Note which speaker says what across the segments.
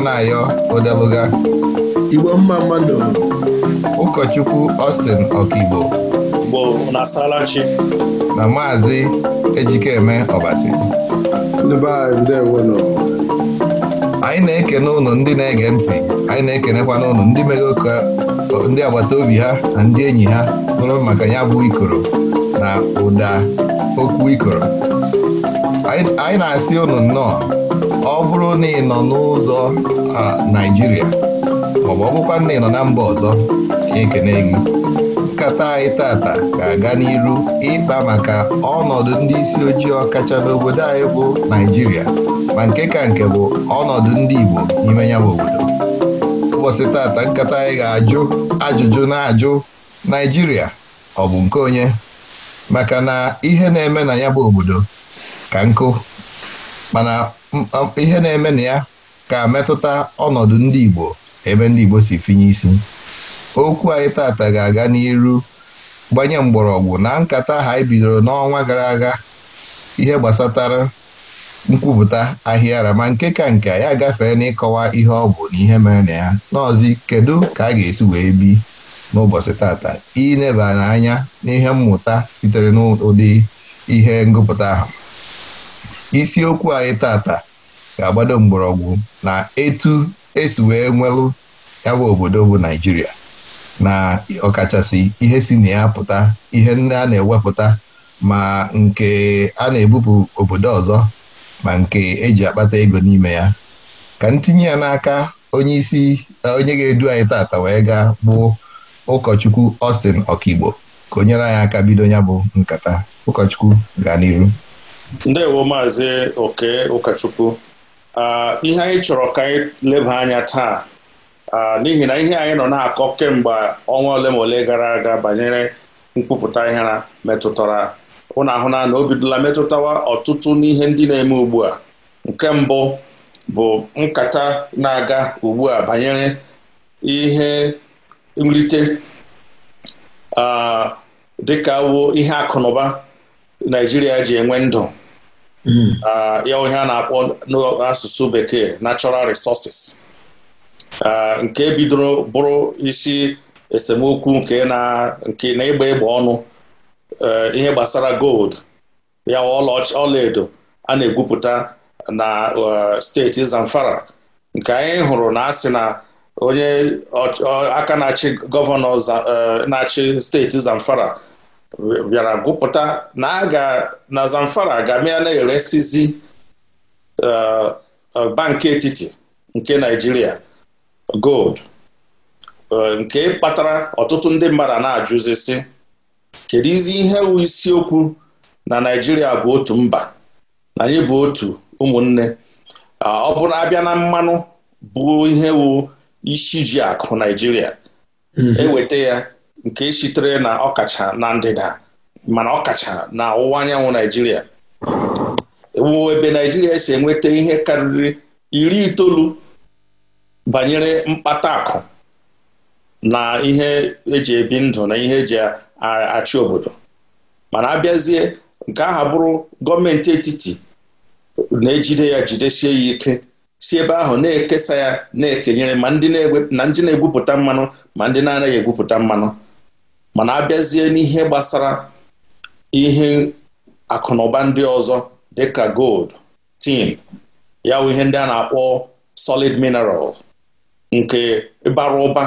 Speaker 1: na-ayọ, Anayo Odeluga Igbo mma mmadụ ụkọchukwu Austin Ọkigbo na maazị Ejikeme Ọbasi anyị na-ekene ụnụ ndị na-ege ntị anyị na-ekenekwa n'ụnụ ndị mere ụka ndị agbata obi ha na ndị enyi ha nụrụ maka ya bụ ikoro na ụda okwu ikoro anyị na-asị ụnụ nnọọ na ị nọ n'ụzọ Naijiria, maọbụ ọ bụkwa nọ na mba ọzọ ekene gị nkata anyị tata ga-aga n'iru ịkpa maka ọnọdụ ndị isi ojii ọkacha n'obodo anyị bụ Naijiria, ma nke ka nke bụ ọnọdụ ndị Igbo n'ime ya bụ obodo ụbọchị tata nkata anyị ga-ajụ ajụjụ na-ajụ Naijiria ọ bụ nke onye maka na ihe na-eme na ya bụ obodo ka nkụ mana ihe na-eme na ya ga metụta ọnọdụ ndị Igbo ebe ndị Igbo si finye isi okwu anyị tata ga-aga n'iru gbanye mgbọrọgwụ na nkata ha anyị e bidoro n'ọnwa gara aga ihe gbasatara nkwupụta ara ma nke ka nke ya gafee n'ịkọwa ihe ọ bụ na ihe mere na ya n'ọzi kedu ka a ga-esi wee bi n'ụbọchị tata ineba n'anya n'ihe mmụta sitere n'ụdị ihe ngụpụta ahụ isiokwu anyị tata ga-agbado mgbọrọgwụ na etu esi wee nwelụ ya bụ obodo bụ Naijiria na ọkachasị ihe si na ya pụta ihe ndị a na-ewepụta ma nke a na-ebupụ obodo ọzọ ma nke eji akpata ego n'ime ya ka ntinye ya n'aka onye onye ga-edu anyị tata wee gaa bụ ụkọchukwu Austin Okigbo ka onyere anyị aka bido ya bụ nkata ụkọchukwu gaa n'iru
Speaker 2: ndewo maazị oke ụkọchukwu ah, ihe anyị chọrọ ka anyị leba anya taa ah, n'ihi na ihe anyị nọ na-akọ kemgbe ọnwa ole ma ole gara aga banyere nkwupụta ihe metụtara ụnụ ahụna na o bidola metụtawa ọtụtụ n'ihe ndị na-eme ugbu a nke mbụ bụ nkata na-aga ugbu a banyere ihe nrite ah, dịka wo ihe akụnụba Naijiria ji enwe ndụ Mm. Ah, ya onye a na-akpọ n'asụsụ bekee natural resources ah, nke bidoro bụrụ isi esemokwu nke na ịgba ịgba ọnụ eh, ihe gbasara gold ya ọlaedo a na-egwupụta na eh, steeti Zamfara nke anyị hụrụ na asị na onye aka na-achị gọvanọ eh, na-achị steeti Zamfara bịara gwụpụta na a ga na Zamfara ga-amị na-eresizi eh, eh, banki etiti nke Naijiria gold eh, nke kpatara ọtụtụ ndị mmadụ na-ajụzi sị kedu izi ihe wu isiokwu na Naijiria bụ otu mba na anyị bụ otu ụmụnne ọ bụrụ abịa na mmanụ bụ ihe wu isi akụ Naijiria
Speaker 1: mm-hmm. eweta
Speaker 2: ya nke sitere na ọkacha na ndịda mana ọkacha na ọwụwa anyanwụ naijiria wụ ebe naijiria si enweta ihe karịrị iri itoolu banyere mkpata akụ na ihe eji ebi ndụ na ihe eji achị obodo mana abịazie nke aha bụrụ gọọmenti etiti na-ejide ya jidesie ya ike si ebe ahụ na-ekesa ya na-ekenyere ma ndị na-egwupụta mmanụ ma ndị na-anaghị egwupụta mmanụ mana abịazie n'ihe gbasara ihe akụnụba ndị ọzọ dịka gold tin ya bụ ihe ndị a na-akpọ solid mineral nke bara ụba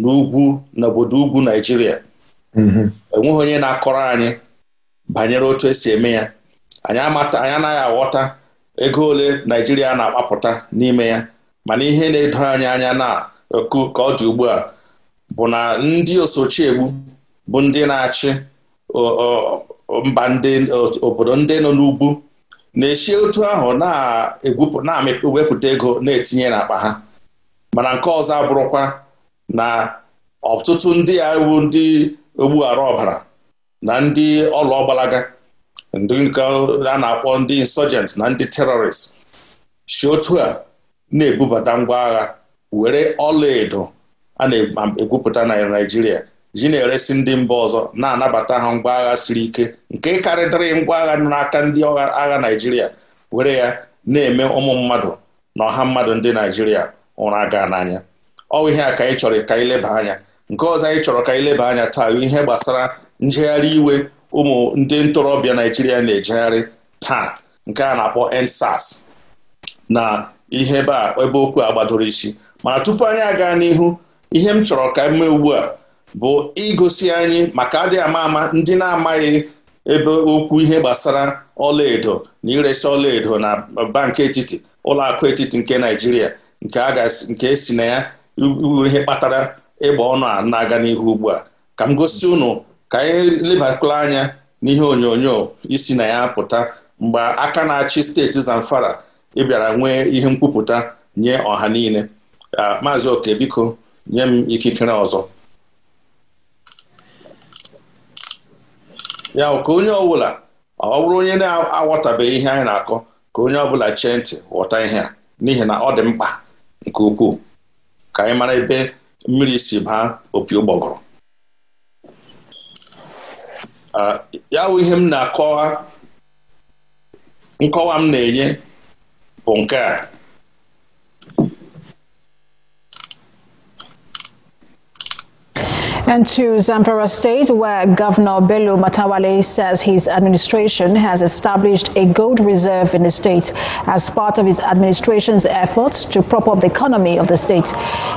Speaker 2: n'ugwu n'obodo ugwu Naijiria mhm. enweghị onye na-akọrọ anyị banyere otu esi eme ya anyị amata anyị anaghị aghọta ego ole Naijiria na-akpapụta n'ime ya mana ihe na-edo anyị anya na ka ọ dị ugbu a bụ na ndị osochi egbu bụ ndị na-achị mba ndị obodo ndị nọ n'ugwu na-echi otu ahụ na-ewepụta ego na-etinye n'akpa ha mana nke ọzọ abụrụkwa na ọtụtụ ndị a wu ndị ogbughara ọbara na ndị ọlụ ọgbalaga ndị nke a na-akpọ ndị insurgents na ndị terrorists si otu a na-ebubata ngwa agha were edo a na-egwupụta na Naịjirịa ji na-eresi ndị mba ọzọ na-anabata ha ngwa agha siri ike nke karịdịrị ngwa agha n'aka ndị agha naijiria were ya na-eme ụmụ mmadụ na ọha mmadụ ndị naijiria ụra gaa n'anya ọwụ ihe a ka anyị chọrọ ka anyị leba anya nke ọzọ anyị chọrọ ka anyị leba anya taa ihe gbasara njegharị iwe ụmụ ndị ntorobịa naijiria na-ejegharị taa nke a na-akpọ ensas na ihe ebe a ebe okwu a gbadoro isi mana tupu anyị aga n'ihu ihe m chọrọ ka m mee ugbu a bụ igosi anyị maka adị ama ama ndị na-amaghị ebe okwu ihe gbasara ọlaedo na iresi ọlaedo na bank etiti ụlọakụ etiti nke naijiria nke esi e na ya ihe kpatara ịgba ọnụ a na-aga n'ihu ugbu a ka m gosi ụnụ ka anyị lebakwala anya n'ihe onyonyo isi na ya pụta mgbe aka na-achị steeti Zamfara ịbịara nwee ihe nkwupụta nye ọha niile ah, maazị oke biko nye m ikikere ọzọ ya ka onye ọbụla ọ bụrụ onye na-aghọtabeghị ihe anyị na-akọ ka onye ọbụla chee ntị ghọta ihe a n'ihi na ọ dị mkpa nke ukwuu ka anyị mara ebe mmiri si baa opi ụgbọgọrọ ya bụ ihe m na-akọwa nkọwa m na-enye bụ nke a
Speaker 1: And to Zamfara State, where Governor Bello Matawale says his administration has established a gold reserve in the state as part of his administration's efforts to prop up the economy of the state.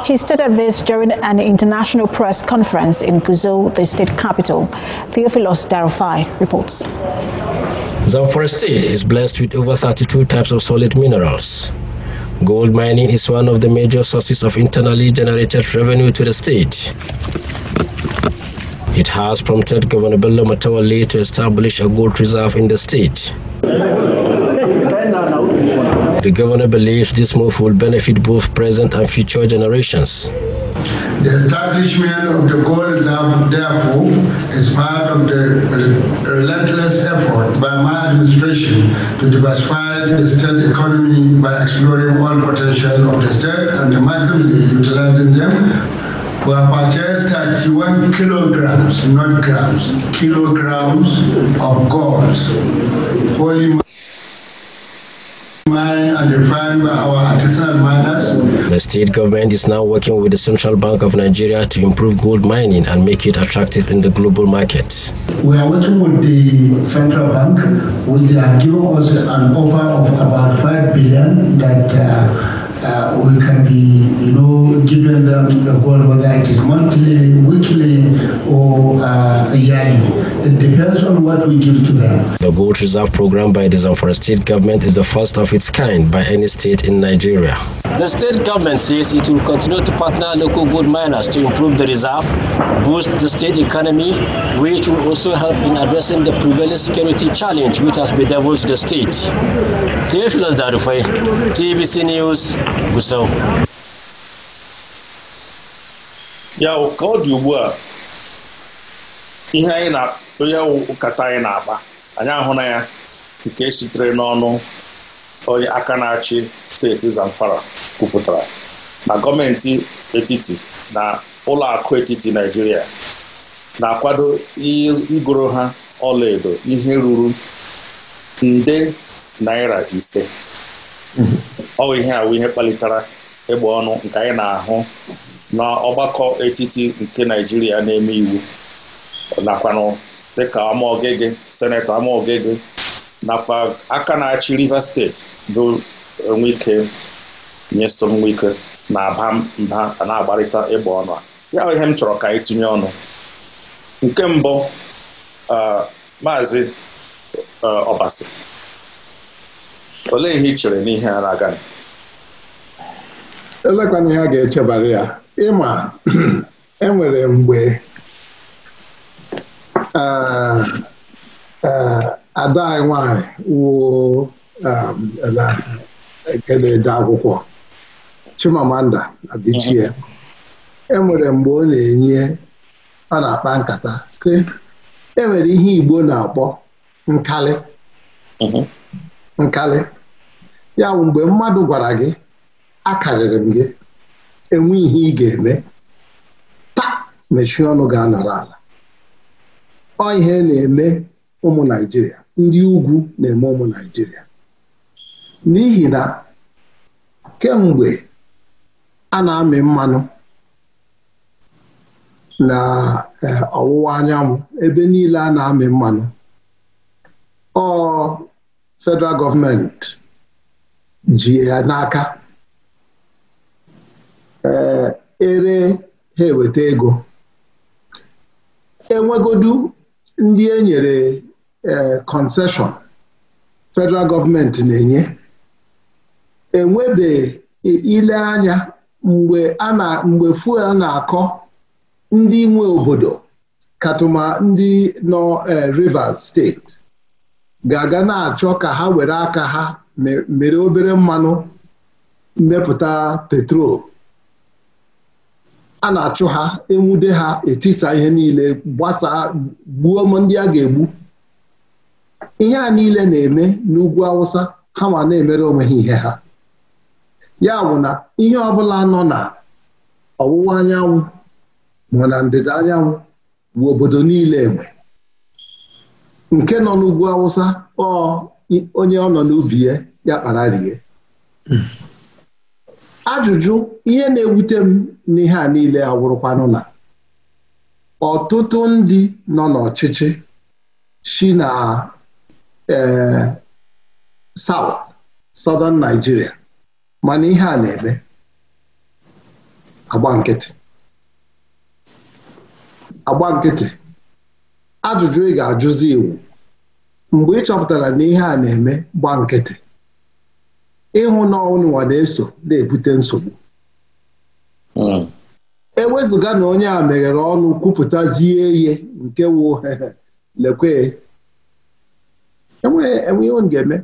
Speaker 1: He stated this during an international press conference in Guzo, the state capital. Theophilus Darufai reports.
Speaker 2: Zamfara State is blessed with over 32 types of solid minerals Gold mining is one of the major sources of internally generated revenue to the state. It has prompted Governor Bello Matawale to establish a gold reserve in the state.
Speaker 3: The governor believes this move will benefit both present and future generations. The establishment of the gold reserve, therefore, is part of the relentless effort by my administration to diversify the state economy by exploring all potential of the state and maximally utilizing them were purchased 31 kilograms, not grams, kilograms of gold. Holy The state government is now working with the Central Bank of Nigeria to improve gold mining and make it attractive in the global market. We are working with the Central Bank, which they are us an offer of about 5 billion that uh, uh, we can be, you know, giving them the gold, whether it is monthly, weekly, or uh, yearly. it depends on what we give to them.
Speaker 2: The Gold Reserve Program by the Zamfara State Government is the first of its kind by any state in Nigeria.
Speaker 3: The state government says it will continue to partner local gold miners to improve the reserve, boost the state economy, which will also help in addressing the prevailing security challenge which has bedeviled the state. Theophilus TBC News, Gusau.
Speaker 2: Ya, ụka ihe anyị na onye ụkata anyị na-akpa anyị ahụna ya nke e sitere n'ọnụ onye aka na-achị steeti Zamfara kwupụtara na gọọmenti etiti na ụlọakụ etiti Naijiria na-akwado igoro ha ọlaedo ihe ruru nde naira ise ọ ihe awụ ihe kpalitara ịgba ọnụ nke anyị na-ahụ n'ọgbakọ etiti nke Naijiria na-eme iwu nakwanụ dịka Amaogege senetọ Amaogege nakwa aka na-achị Rivers steeti bụ Nwike nyeso Nwike na-aba mba na-agbarịta ịgba ọnụ a ya ihe m chọrọ ka anyị tinye ọnụ nke mbụ maazị Ọbasi olee ihe ị chere n'ihe a na-aga
Speaker 3: elekwana echebara ya ịma enwere e mgbe ada anyị nwanyị wuo ede akwụkwọ Chimamanda Adichie enwere mgbe ọ na-enye ọ na-akpa nkata sị enwere ihe Igbo na-akpọ nkalị uh-huh. nkali. ya bụ mgbe mmadụ gwara gị akarịrị m gị enwe ihe ị ga-eme taa mechie ọnụ ga-anọrọ ala ọ ihe na-eme ụmụ Naịjirịa ndị ugwu na-eme ụmụ Naịjirịa n'ihi na kemgbe a na-amị mmanụ na e, ọwụwa anyanwụ ebe niile a na-amị mmanụ ọ federal gọọmenti ji ya n'aka e, ere ha eweta ego enwegodu ndị e nyere kọnseshọn e, federal gọọmenti na-enye enwebeghị ile anya mgbe a na fuel na-akọ ndị nwe obodo katụma ndị nọ e, Rivers steeti ga-aga na-achọ ka ha were aka ha mere obere mmanụ mmepụta petrol a na-achụ ha enwude ha etisa ihe niile gbasaa gbuo ndị a ga-egbu ihe a niile na-eme n'ugwu awụsa ha ma na-emere onwe ha ihe ha ya bụ na ihe ọbụla nọ na ọwụwa anyanwụ ma na ndịda anyanwụ bụ obodo niile enwe nke nọ n'ugwu awụsa ọ onye ọ nọ n'ubi ya ya kpara rie ajụjụ ihe na-ewute m n'ihe a niile awụrụkwanụ na ọtụtụ ndị nọ n'ọchịchị si na e, South Southern Nigeria mana ihe a na-eme agba nkịtị agba nkịtị ajụjụ ị ga-ajụzi iwu mgbe ị chọpụtara na ihe a na-eme gba nkịtị ịhụ na ọnụnwa na-eso na-ebute nsogbu hmm. ewezụga na onye a meghere ọnụ kwupụtazie ihe nke wụ lekwe enweghị m ga-eme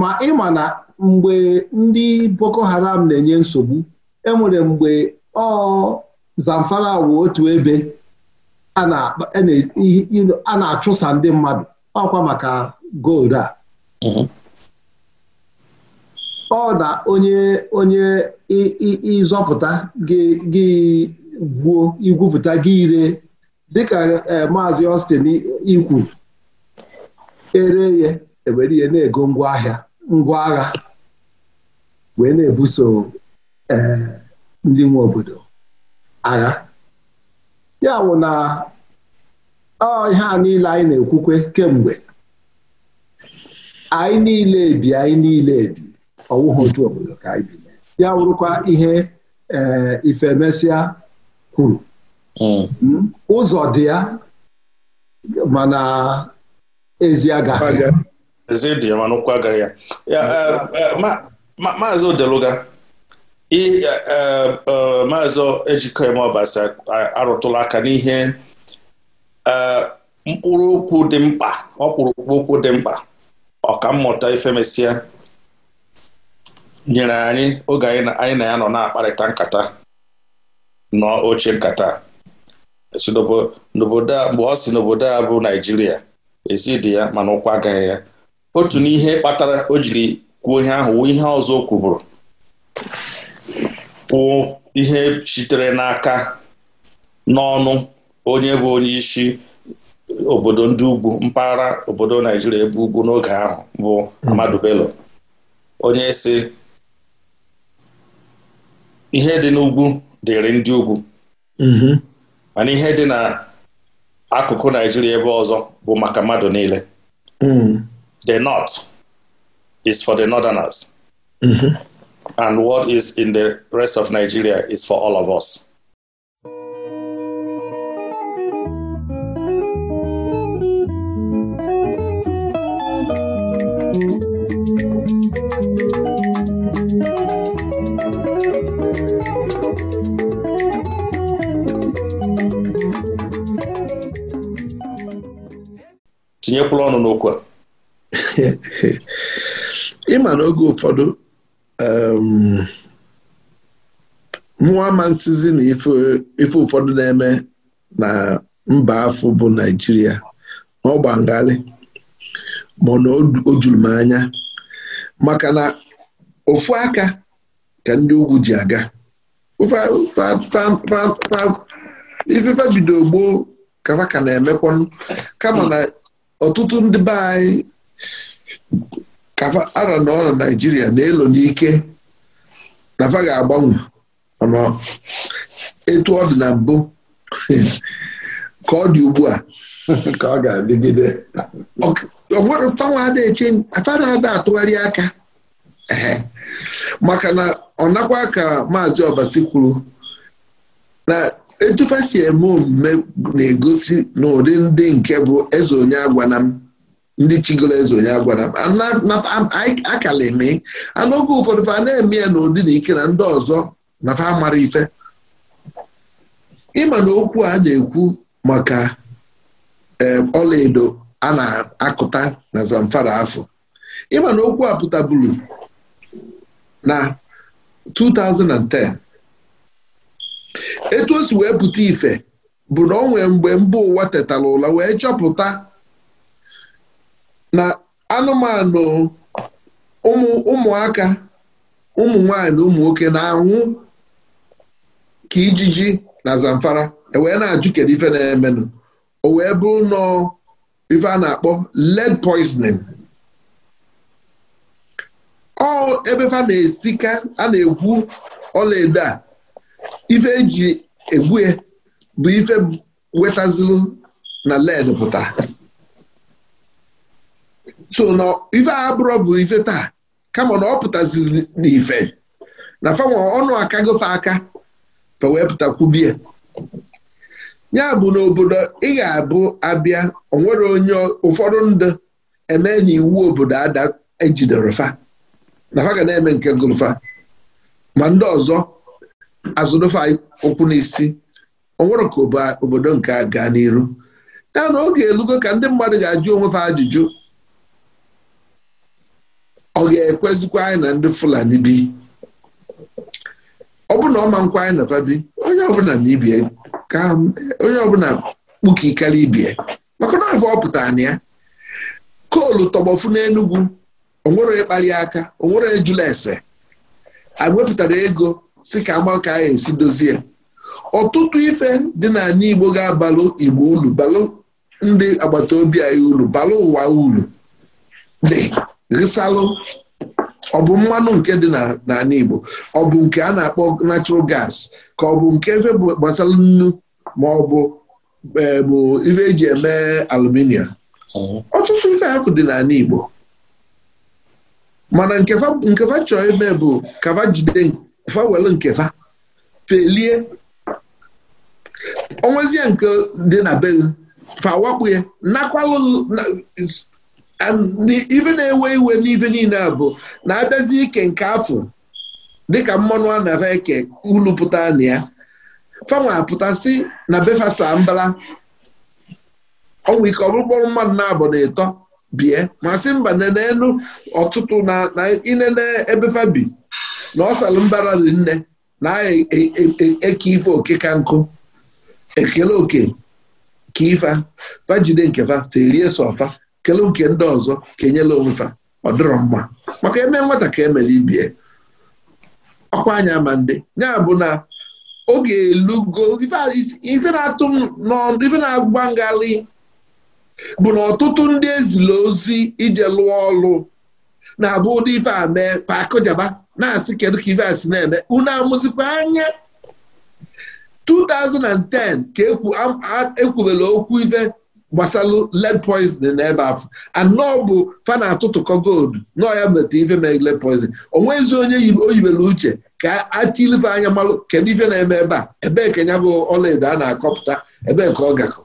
Speaker 3: ma ịma na mgbe ndị Boko Haram na-enye nsogbu enwere mgbe ọ Zamfara wụ otu ebe a e na-achụsa ndị mmadụ ọkwa maka gold a hmm. ọ na onye onye ịzọpụta gị gwuo igwupụta gị ire dịka e, maazị Austin ikwu ere ya ewere ihe na-ego ahịa ngwa agha wee na-ebuso e, ndị nwe obodo agha ya bụ na ọ ihe a niile anyị na-ekwukwe kemgbe anyị niile ebi anyị niile ebi ọwụghị otu obodo ka anyị bi ya wụrụkwa ihe ee eh, ifemesịa kwuru hmm. Hmm? ụzọ dị ya mana ezi agaghị
Speaker 2: ezi ya ụkwụ ya eh, hmm. eh, maazị odeluga maazị ejikọime ọbasa arụtụla aka n'ihe mkpụrụ okwu dị mkpa ọkpụrụkpụ okwu dị mkpa ọkammụta ifemesịa nyere anyị oge anyị na ya nọ na-akparịta nkata n'oche nkata n'obodo mgbe ọ si n'obodo a bụ Naijiria ezi dị ya mana ụkwa agaghị ya otu n'ihe kpatara o jiri kwuo ihe ahụ ihe ọzọ o kwuburu kwụọ ihe sitere n'aka n'ọnụ onye bụ onye isi obodo ndị ugwu mpaghara obodo Naijiria ebe ugwu n'oge ahụ bụ Amadu Bello onye si ihe dị n'ugwu dịrị ndị ugwu mm-hmm. mana ihe dị n'akụkụ Naijiria ebe ọzọ bụ maka mmadụ niile mm. the north is for the northerners mm-hmm. and what is in the rest of Nigeria is for all of us tinyekwula ọnụ n'okwu a
Speaker 3: ịma n'oge oge ụfọdụ um, mụwa ma nsizi na ife ụfọdụ na-eme na mba afọ bụ Naịjirịa na ọgbangharị ma na o juru m anya maka na ofu aka ka ndị ugwu ji aga ifefe bido gboo kafa ka na-emekwanụ kama na ọtụtụ ndị be anyị ara na n'ọrụ na Naịjirịa na-elo n'ike na fa ga-agbanwe etu ọ dị na mbụ ka ọ dị ugbu a ka ọ ga-adịgide onwere tanwa na-eche afa na-ada atụgharị aka maka na ọ nakwa ka maazị Obasi kwuru na etufa si eme omume na-egosi n'ụdị ụdị ndị nke bụ eze onye m ndị chigoro eze onye agwana m akala eme a oge ụfọdụ fa na-eme ya n'ụdị na ike na ndị ọzọ na fa mara ife ịma na okwu a na-ekwu maka ọlaedo a na-akụta na Zamfara afọ ịma na okwu a na 2010 etu o wee pụta ife bụ na o nwee mgbe mba ụwa tetara ụla wee chọpụta na anụmanụ ụmụaka ụmụ nwanyị na ụmụ nwoke na-anwụ ka ijiji na Zamfara ewee na-ajụ kedu ife na-emenụ o wee bụrụ nọọ ife a na-akpọ lead poisoning ọ ebe na-esika a na-egwu ọlaedo a ife eji egbue bụ ife wetazịrị na led pụta so na ife abụrọ bụ ife taa kama na ọ pụtaziri n'ife na fanwe ọnụ aka gofe aka fa wee pụtakwubie ya bụ n'obodo ị ga-abụ abịa onwere onye ụfọdụ ndụ eme n'iwu obodo ada e fa na fa ga na-eme nke gụlụfa ma ndị ọzọ azụdofe ụkwụ n'isi ọ nwere ka obodo nke a gaa n'iru ya na oge elugo ka ndị mmadụ ga-ajụ onwe ha ajụjụ ọ ga-ekwezikwa anyị na ndị Fulani bi ọ bụ na ọ ma nkwa anyị na fa bi onye ọbụla na ibie ka onye ọbụla kpukikara ibie maka na afọ ọ pụtara na ya koolu tọgbọfu n'Enugwu onwere ịkpali aka onwere ejula ese a ego si ka agba ka anyị e esi dozie ọtụtụ ife dị n'ala Igbo ga-abalụ Igbo ulu balụ ndị agbata obi anyị ulu balụ ụwa ulu dị risalụ ọ bụ mmanụ nke dị n'ala Igbo ọ bụ nke a na-akpọ natural gas ka ọ bụ nke efe gbasara nnu ma ọ bụ e, bụ ife eji eme aluminium ọtụtụ ife afụ dị n'ala Igbo mana nkefa chọọ ime bụ kafa jide fa were nke fa felie onwezie nke dị na be fa wakpu ya nakwalụ ife na-ewe iwe n'ife niile a bụ na-abịazi ike nke afọ dịka mmanụ a na eke ulu pụta na ya fanwe apụtasị na befasa mbala ọnwa ike ọkpụkpọrụ mmadụ na-abụ na ịtọ bie masị mba nenenu ọtụtụ na inene ebefa bi na ọsalụ mbara dị nne na aha e, e, e, eke ife oke ka nkụ ekele oke ka ifa fajide nke fa ferie so ọfa kele nke ndị ọzọ ka enyela onwe fa ọ dịrọ mma maka eme nwata ka emere ibie ọkwa anya ma ndị ya bụ na oge elugo ife na-atụ m ife na-agba ngalị bụ na ọtụtụ ndị ezila ozi ije lụọ ọlụ na-abụ ụdị ife a mee pakụjaba na-asị kedu ka ife asị na-eme unu amụzikwa anya 2010 ka ekwubela okwu ife gbasalụ lead poisoning n'ebe afọ anọ bụ fa na-atụtụkọ gold nọọ ya meta ife mee led poisoning onwezi onye o yibere uche ka atilife anya malụ kedu ife na-eme ebe a ebee ka ya bụ ọlaedo a na-akọpụta ebe nke ọ gakọ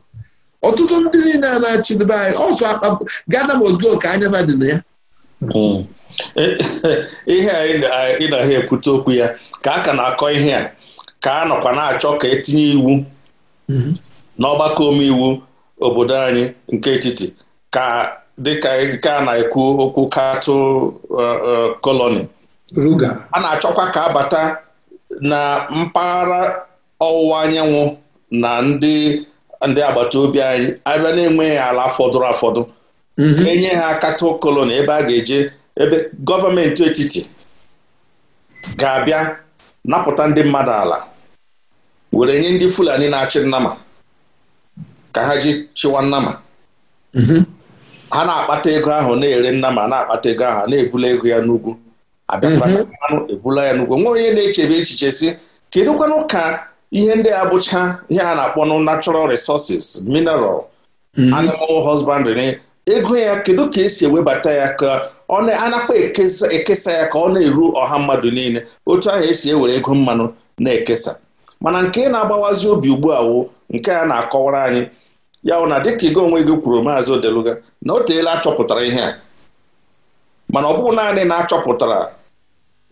Speaker 3: ọtụtụ ndị niile a na-achịdebe anyị ọsọ akpa gaa gana mosgo ka anya fa dị ya hmm.
Speaker 2: ihe a ha ekwute okwu ya ka a ka na-akọ ihe a ka a nọkwa na-achọ ka etinye iwu mhm. n'ọgbakọ omeiwu obodo anyị nke etiti ka dịka nke a na-ekwu okwu katụ koloni uh, uh, a na-achọkwa ka abata na mpaghara ọwụwa anyanwụ na ndị ndị agbata obi anyị abịa na-enweghị ala fọdụrụ afọdụ mhm. enye ha katụ koloni ebe a ga-eje ebe gọọmenti etiti ga-abịa napụta ndị mmadụ ala were nye ndị Fulani na-achị nnama ka ha ji chịwa nnama mhm. ha na-akpata ego ahụ na-ere nnama na-akpata ego ahụ na-ebula ego ya n'ugwu abịakwanụ mhm. ebula ya n'ugwu nwa onye na-echebe echiche si kedụkwanụ ka ihe ndị a bụcha ihe a na-akpọ natural resources mineral mhm. animal husbandry ego ya kedu ka esi ewebata ya ka ọ anakpa ekesa ya ka ọ na-eru ọha mmadụ niile otu ahụ esi ewere ego mmanụ na-ekesa mana nke na-agbawazi obi ugbu a wụ nke a na-akọwara anyị ya bụ na dịka ego onwe gị kwuru maazị Odeluga na o teela achọpụtara ihe a mana ọ bụghị naanị na-achọpụtara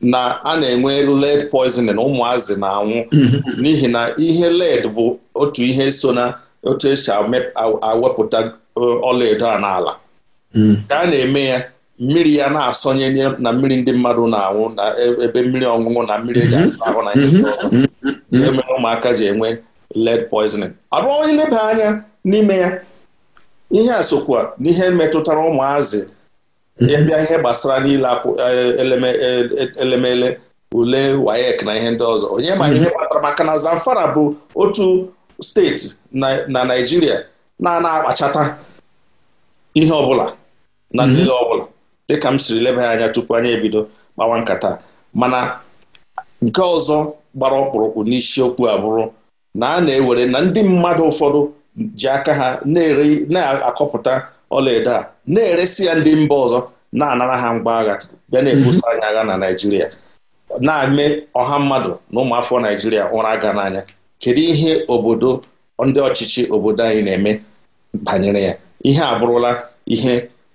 Speaker 2: na a na-enwe lead poisoning ụmụazị na-anwụ mm-hmm. n'ihi na ihe lead bụ otu ihe so na otu esi awepụta uh, ọlaedo a n'ala mm. ka a na-eme ya mmiri ya na-asọnye na mmiri ndị mmadụ na-anwụ na e, ebe mmiri ọṅụṅụ na mmiri eji mhm. asa ahụ na ihe ihe mere ụmụaka ji enwe lead poisoning abụọ leba anya n'ime ya ihe a sokwa n'ihe metụtara ụmụazị mhm. ịbịa ihe gbasara niile e, e, elemele ule wayek na ihe ndị ọzọ onye ma mhm. ihe kpatara maka na Zamfara bụ otu steeti na Naịjirịa na-ana akpachata ihe ọbụla na nlele ọbụla dịka m siri leba ya anya tupu anya ebido kpawa nkata mana nke ọzọ gbara ọkpụrụkpụ n'isiokwu abụrụ na a na-ewere na ndị mmadụ ụfọdụ ji aka ha na-akọpụta ọlaedo a na-eresi ya ndị mba ọzọ na-anara ha mgba agha bịa na ebusa mhm. anyị agha na Naịjirịa na-eme ọha mmadụ na ụmụafọ Naịjirịa ụra aga n'anya kedu ihe obodo ndị ọchịchị obodo anyị na-eme banyere ya ihe abụrụla ihe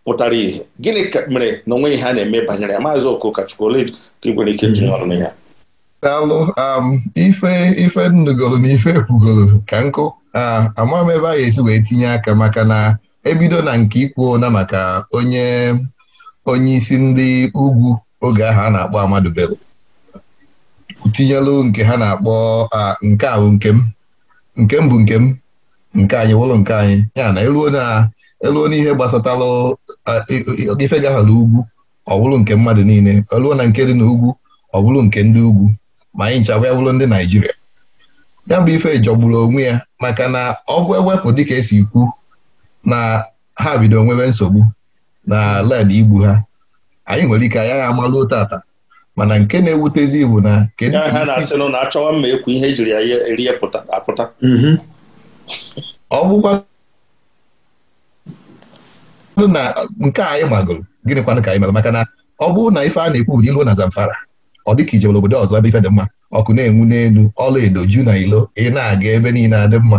Speaker 2: pụtara ihe gịnị ka mere na onwe ihe a na-eme banyere ya maazị Okochukwu ole ka ị nwere ike tinye ọrụ n'ihe
Speaker 1: daalụ um, ife ife nnugoro na ife ekwugoro ka nkụ ama m ebe a ga-esi wee tinye aka maka na ebido na nke ikwu na maka onye onye isi ndị ugwu oge ahụ a na-akpọ Amadu Bello tinyelu nke ha na-akpọ nke ahụ nke m nke m bụ nke m nke anyị wụrụ nke anyị ya na eluo n'ihe gbasatalụ ife gaghara ugwu ọ bụrụ nke mmadụ niile eluo na nke dị na ugwu ọ bụrụ nke ndị ugwu ma anyị nchaba ya bụrụ ndị Naijiria ya bụ ife jọgburu onwe ya maka na ọgwụ bụ ewepụ dịka esi kwu na ha bido nwebe nsogbu na led igbu ha anyị nwere ike anyị agha amalụ tata mana nke na-ewutezi bụ na kedu ka apụta. ọ bụkwa na nke anyị magoro gịnị kwanụ ka anyị mere maka na ọ bụrụ na ife a na-ekwu bụ ilu na Zamfara ọ dị ka ije obodo ọzọ ebe ife dị mma ọkụ na-enwu n'elu ọla edo ju na ilo ị na-aga ebe niile adị mma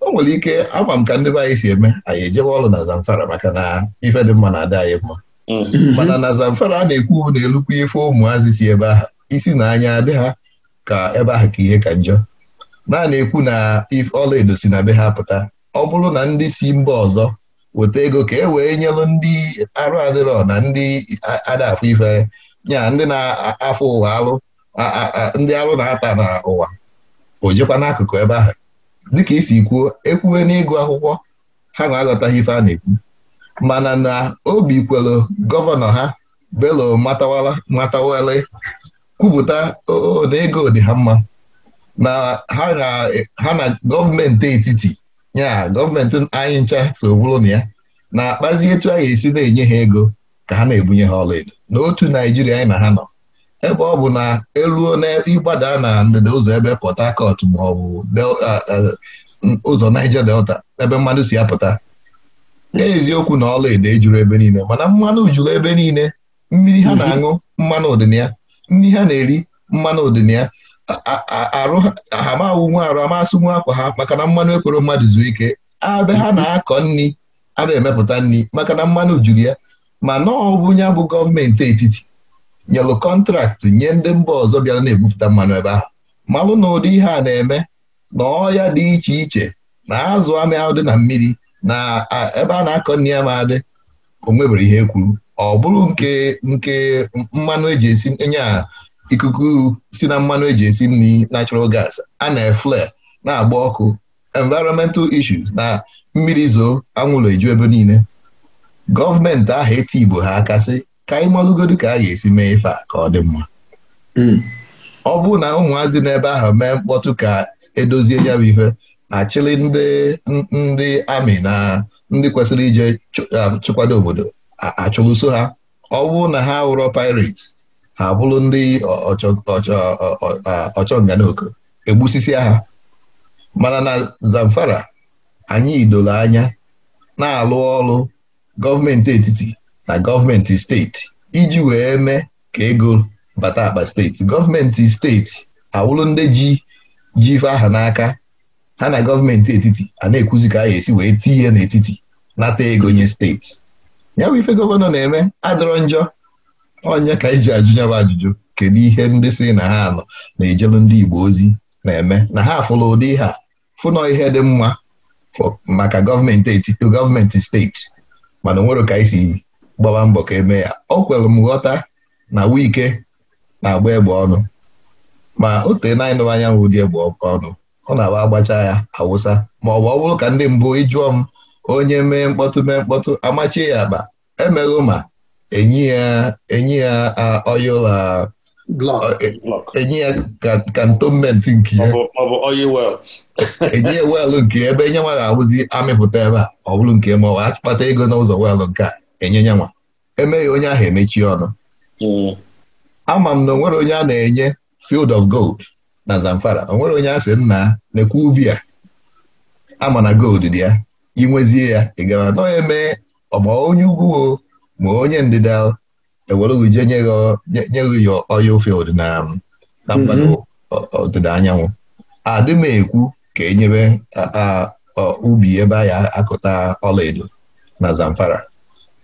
Speaker 1: o nwere ike ama m ka ndị be anyị si eme anyị ejewe ọrụ na Zamfara maka na ife dị mma na-adị anyị mma mm. mana na Zamfara a na-ekwu na elukwa ife ụmụazị si ebe ahụ isi na anya adị ha ka ebe ahụ ka ihe ka njọ naanị ekwu na ọla ọlaedo si na be ha pụta ọ bụrụ na ndị si mba ọzọ weta ego ka e wee nyelụ ndị arụ adịrọ na ndị adafụ ife nya ndị na-afụ ụwa alụ ndị alụ na-ata n'ụwa o jekwa n'akụkụ ebe ahụ dịka isi kwuo ekwuwe n'ịgụ akwụkwọ ha na-aghọtaghị ife a na-ekwu mana na obi kwelu gọvanọ ha belo matawala kwupụta na ego dị ha mma na ha na gọọmenti etiti ya gọọmenti anyị ncha so bụrụ na ya na-akpazi etu a ga-esi na-enye ha ego ka ha na-ebunye ha ọlaedo n'otu naijiria anyị na ha nọ ebe ọ bụ na eruo n'ịgbada na ndịda ụzọ ebe Port Harcourt ma ọ bụ ụzọ naija Delta ebe mmadụ si apụta n'eziokwu na ọlaedo ejuru ebe niile mana mmanụ juru ebe niile mmiri ha na-aṅụ mmanụ ya nri ha na-eri mmanụ ya ha ma awụ nwa arụ amasị nwa akwa ha maka na mmanụ ekwere mmadụ zuo ike abịa ha na-akọ nri abịa emepụta nri maka na mmanụ juru ya ma na ọbụ ya bụ gọọmenti etiti nyelụ kọntraktị nye ndị mba ọzọ bịara na-ebupụta mmanụ ebe ahụ malụ na ụdị ihe a na-eme na ọya dị iche iche na azụ amị ahụ dị na mmiri na ebe a na-akọ nri ya ma adị o nwebere ihe kwuru ọ bụrụ nke nke mmanụ eji esi enye a ikuku si na mmanụ eji esi nri natural gas a na-efle na-agba ọkụ environmental issues na mmiri zoo anwụlọ eju ebe niile gọọmenti aha eti Igbo ha akasị ka anyị malụgodu ka a ga-esi mee ife a ka ọ dị mma hmm. ọ bụrụ na ụmụazị n'ebe ahụ mee mkpọtụ ka edozie ya bụ ife achịlị ndị amị na ndị kwesịrị ije um, chụkwado obodo achụlụso ha ọ bụ na ha wụrọ pirates ha abụrụ ndị ọchọ nganoko egbusisi agha mana na Zamfara anyị doro anya na-alụ ọrụ gọọmenti etiti na gọọmenti steeti iji wee mee ka ego bata akpa steeti gọọmenti steeti awụrụ ndị ji ji ife aha n'aka ha na gọọmenti etiti a na-ekwuzi ka a ga-esi wee tinye n'etiti nata ego nye steeti ya ife gọvanọ na-eme adịrọ njọ onye ka iji ajụ nyaba ajụjụ kedu ihe ndị si na ha nọ na-ejelu ndị Igbo ozi na-eme na ha afụla ụdị ha fụnọ ihe dị mma maka gọọmenti gọọmenti steeti mana nwere ka isi gbawa mbọ ka eme ya o kwere m ghọta na wike na-agba egbe ọnụ ma o tee na anyanwụ dị egbe ọnụ ọ na-agba agbacha ya awụsa ma ọ bụ ọ bụrụ ka ndị mbụ ịjụọ m onye mee mkpọtụ mee mkpọtụ amachie ya akpa emeghụ ma enye ya enye ya oil e, ya nke ya enye ya weelụ nke ebe enye ga awụzi amịpụta ebe a ọ bụrụ nke ma ọ bụ akpata ego n'ụzọ weelụ nke a enye nyanwa nwa emeghị onye ahụ emechi ọnụ hmm. ama m na onwere onye a na-enye field of gold na Zamfara onwere onye a sị nna nekwe ubi a ama na gold dị ya inwezie ya ị gara nọ eme ọ ma onye ugwu ma onye ndịda ewerewuje nye ya ụfọdụ na mba ọdịda anyanwụ adị m ekwu ka e nyebe ubi ebe a ya akụta ọlaedo na Zamfara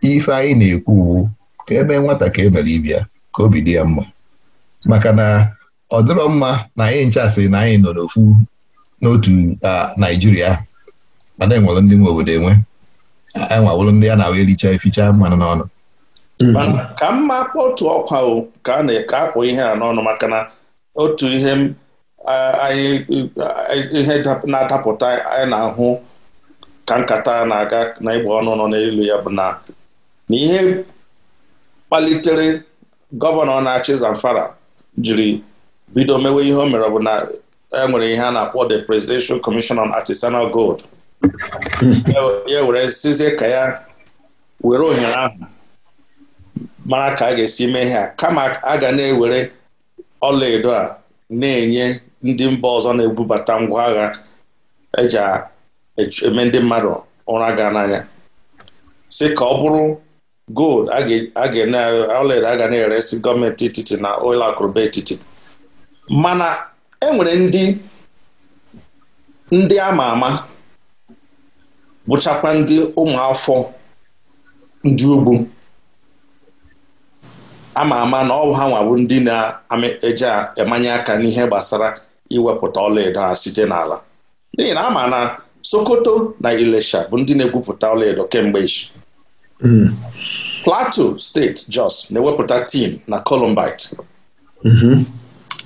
Speaker 1: ife anyị na-ekwu uwu ka eme nwata ka emere ibia ka obi dị ya mma maka na ọ dịrọ mma na anyị nchasị na anyị nọ n'ofu n'otu Naijiria mana enwere ndị nwe obodo enwe enwawụrụ ndị a na-awa ericha eficha mmanụ n'ọnụ mhm.
Speaker 2: ka mma otu ọkwa o ka a na-eke akpụ ihe a n'ọnụ maka na otu ihe ihe na-adapụta anyị na-ahụ ka nkata na-aga na ịgba ọnụ nọ n'elu ya bụ na ihe kpalitere gọvanọ na-achị Zamfara jiri bido mewe ihe o mere bụ na e nwere ihe a na-akpọ the Presidential Commission on Artisanal Gold ya were sizie ka ya were ohere ahụ mara ka a ga-esi mee a kama a ga na-ewere ọlaedo a na-enye ndị mba ọzọ na-ebubata ngwa agha eji e eme ndị mmadụ ụra gaa n'anya si ka ọ bụrụ gold ọlaedo a ga na-eresi gọọmenti etiti na ụlọ akụrụba etiti mana enwere ndị ndị ama ama bụchakwa ndị ụmụafọ ndị ugwu ama ama na ọwụ ha nwabụ ndị na-eji emanye aka n'ihe gbasara iwepụta ọlaedo ha site n'ala n'ihi na ama na Sokoto na Ilesha bụ ndị na-egwupụta ọlaedo kemgbe ichi mm. Plateau steeti Jos na-ewepụta tin na columbite mm-hmm.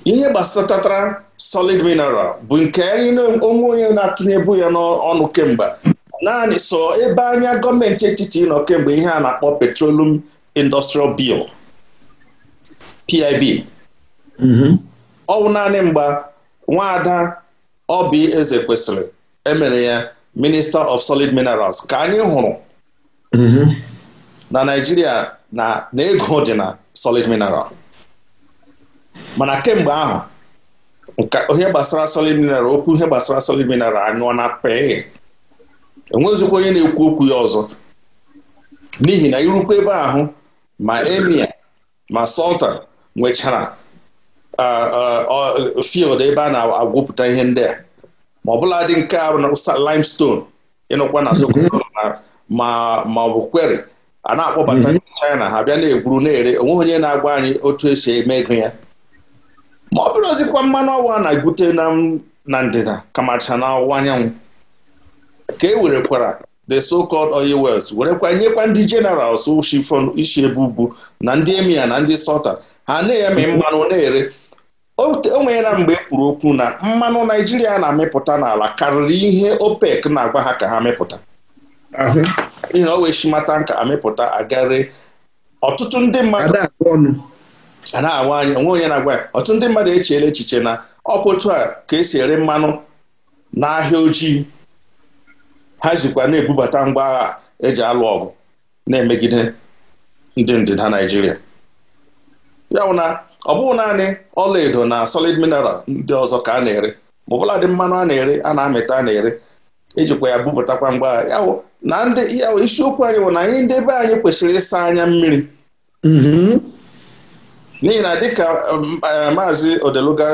Speaker 2: ihe gbasatatara solid mineral bụ nke onwe onye na-atụnyebu ya n'ọnụ kemgbe naanị so ebe anya gọọmenti etiti nọ kemgbe ihe a na-akpọ petroleum industrial bill PIB mhm. ọ naanị mgba nwaada Obi Eze kwesịrị emere ya Minister of Solid Minerals ka anyị hụrụ mhm. na Naijiria na ego dị na solid mineral mana kemgbe ahụ ihe gbasara solid mineral okwu ihe gbasara solid mineral anyụọ na pee enwezikwa onye na-ekwu okwu ya ọzọ n'ihi na irukwa ebe ahụ ma emia ma sultan nwechara field ebe a na-agwụpụta ihe ndị a ma bụla dị nke a limestone ịnụkwa na Sokoto mhm. ma ma ọ bụ kweri a na-akpọbata mhm. China ha bịa na-egwuru na-ere onweghị onye na-agwa anyị otu esi eme ego ya ma ọ bụrụ ozikwa mmanụ ọwa na-egwute na ndịda kamacha na anyanwụ ka e werekwara the so-called oil wells werekwa nyekwa ndị generals shifon ishi ebe na ndị emia na ndị sota ha na-eme mmanụ na-ere o nweela mgbe e kwuru okwu na mmanụ naijiria na-amịpụta n'ala karịrị ihe opec na-agwa ha ka ha mịpụta. n'ihi na o wee shimata nka amịpụta agare ọtụtụ ndị mmadụ na-awa anya onwe onye na-agwa ya ọtụtụ ndị mmadụ echeela echiche na ọkpụtụ a ka esi ere mmanụ n'ahịa ojii ha jikwa na-ebubata ngwa agha eji alụ ọgụ na-emegide ndị ndịda Naịjirịa ya na ọ bụghị naanị ọlaedo na solid mineral ndị ọzọ ka a na-ere ma ọbụla dị mmanụ a na-ere a na-amịta a na-ere ejikwa ya bupụtakwa ngwa agha ya na ndị ya isiokwu anyị bụ na anyị ndị be anyị kwesịrị ịsa anya mmiri mm-hmm. n'ihi na dịka um, eh, maazị Odeluga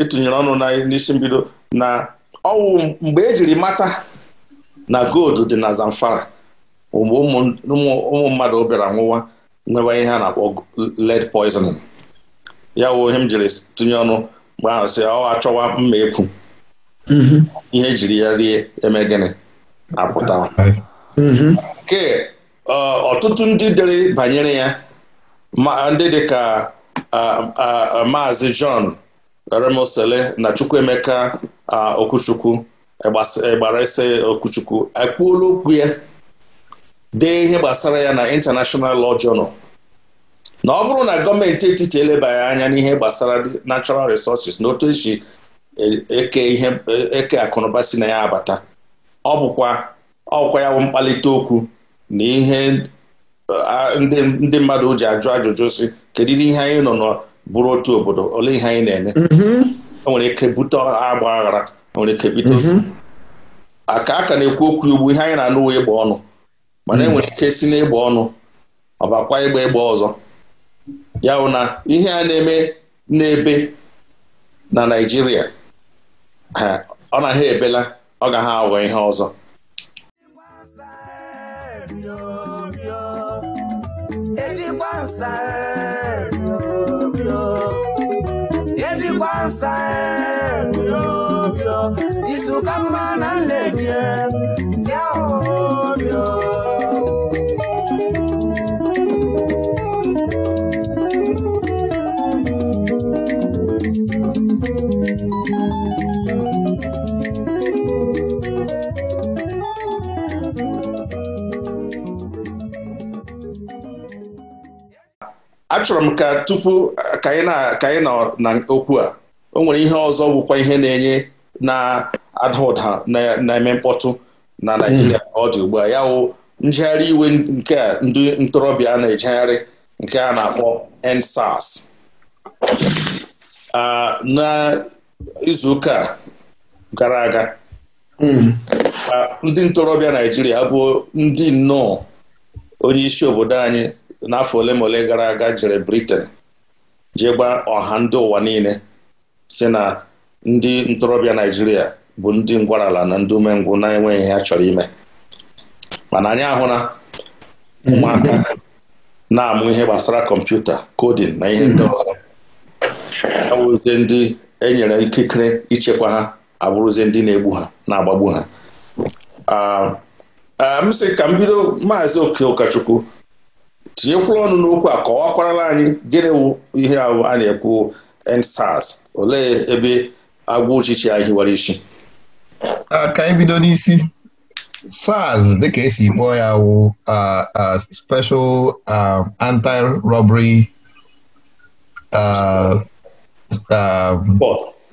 Speaker 2: ịtụnyere e ọnụ n'isi mbido na ọwụ mgbe ejiri mata na gold dị na Zamfara ụmụ mmadụ bịara nwụwa nwewa ihe a na-akpọ lead poisoning ya wụ ihe m jiri tinye ọnụ mgbe ahụ si, ọ achọwa mma ekwu mhm. ihe jiri ya rie eme gịnị apụta mhm. ke ọtụtụ ndị dịrị banyere ya ndị dị ka maazị John Remosele na Chukwuemeka Okwuchukwu gbara ese e, okwuchukwu ekwuola okwu ya dee ihe gbasara ya na International Law Journal na ọ bụrụ na gọọmenti etiti elebaghị anya n'ihe gbasara natural resources na otu esi e, eke ihe e, akụnụba si na ya abata ọ bụkwa ọkwa ya bụ mkpalite okwu na ihe ndị mmadụ ji ajụ ajụjụ si dị ihe anyị nọ n'bụrụ otu obodo ole ihe anyị na-eme o mm-hmm. ike bute agba aghara nwere mm-hmm. a aka aka na-ekwu okwu igbu ihe anyị na-anụ ịgba ọnụ mana enwere mm-hmm. ike si n'ịgba ọnụ ọbakwa ịgba ịgba ọzọ ya na ihe a na-eme n'ebe na Naịjirịa ọ na ha ebela ọ gaghị aghọ ihe ọzọ
Speaker 3: ka mma na
Speaker 2: achọrọ m ka tupu ka anyị na okwu a o nwere ihe ọzọ bụkwa ihe na-enye na-ada ha na-eme mkpọtụ na naijiria ọ dị ugbu a ya wụ iwe nke ndị ntorobịa na-ejegharị nke a na-akpọ EndSARS n'izuụka gara aga mm. ndị ntorobịa naijiria bụ ndị nnọọ onye isi obodo anyị n'afọ ole ma ole gara aga jere Britain gba ọha ndị ụwa niile si na ndị ntorobịa naijiria bụ ndị ngwarala na ndị umengwụ na-enweghị ihe ha chọrọ ime mana anyị na. ụmụaka na-amụ ihe gbasara kọmputa kodin na ihe ndị ọzọ awụzie ndị enyere ikikere ichekwa ha abụrụzie ndị na-egbu ha na-agbagbu ha um, um, m sị ka m bido maazị oke ụkọchukwu tinyekwuru ọnụ n'okwu a kọwakwarala anyị gịnị wụ ihe ahụ a na-ekwu EndSARS olee ebe agwa ụchịchị ya hiwara isi
Speaker 1: ka anyị bido n'isi SARS dịka esi kpọọ ya wụ special anti-robbery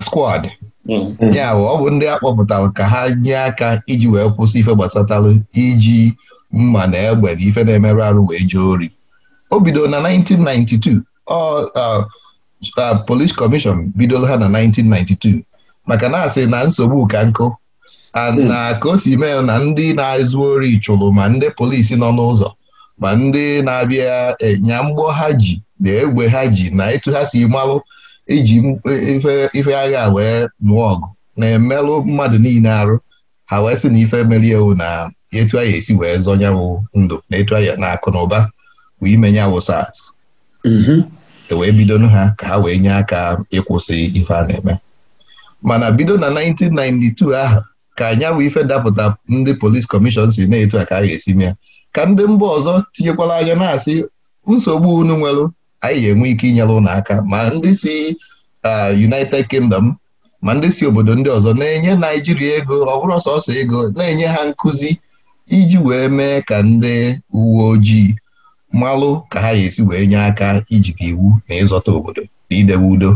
Speaker 1: squad hmm. ya ọ bụ ndị a kpọpụtara ka ha nye aka iji wee kwụsị ife gbasatalụ iji mma na egbe na ife na-emerụ arụ wee jee ori o bido na 1992 ọ Uh, police commission bidoro ha na 1992 maka na asị na nsogbu ka nkụ hmm. na ka o si mee na ndị na azụ ori chụrụ ma ndị polisi nọ n'ụzọ ma ndị na-abịa e, nya mgbọ ha ji na egbe ha ji na etughasi ha si malụ iji e, ife agha wee nụọ ọgụ na-emelụ mmadụ niile arụ ha wee sị na ife merie ewu na etu anyị esi wee zọnyawụ ndụ na etu anyị na akụ na ụba bụ ime nyawụ e wee bidonụ ha ka ha wee nye aka ịkwụsị ife a na-eme mana bido na 1992 ahụ ka anyanwụ ife dapụta ndị polis kọmishọn si na-etu a ka a ga-esi mee ka ndị mba ọzọ tinyekwala anya na-asị nsogbu unu nwere anyị ga-enwe ike inyere ụlọ aka ma ndị si uh, United Kingdom ma ndị si obodo ndị ọzọ na-enye Naijiria ego ọ bụrụ sọsọ ego na-enye ha nkụzi iji wee mee ka ndị uwe ojii mmalụ ka ha ga-esi wee nye aka ijide iwu na ịzọta obodo na idebe udo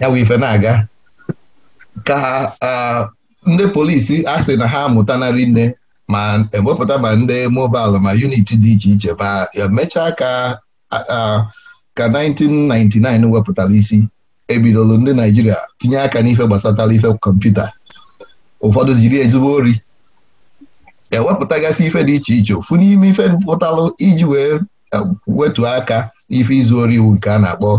Speaker 1: ya bụ ife na-aga ka ndị polisi a sị na ha narị nne ma ewepụta ma ndị mobalụ ma unit dị iche iche ma emechaa ka ka 1999 wepụtara isi ebidolo ndị Naijiria tinye aka n'ife gbasatara ife kọmputa ụfọdụ jiri ezigbo ori ewepụtagasị ife dị iche iche ofu n'ime ife pụtalụ iji wee e, wetu aka ife izu ori iwu nke a na-akpọ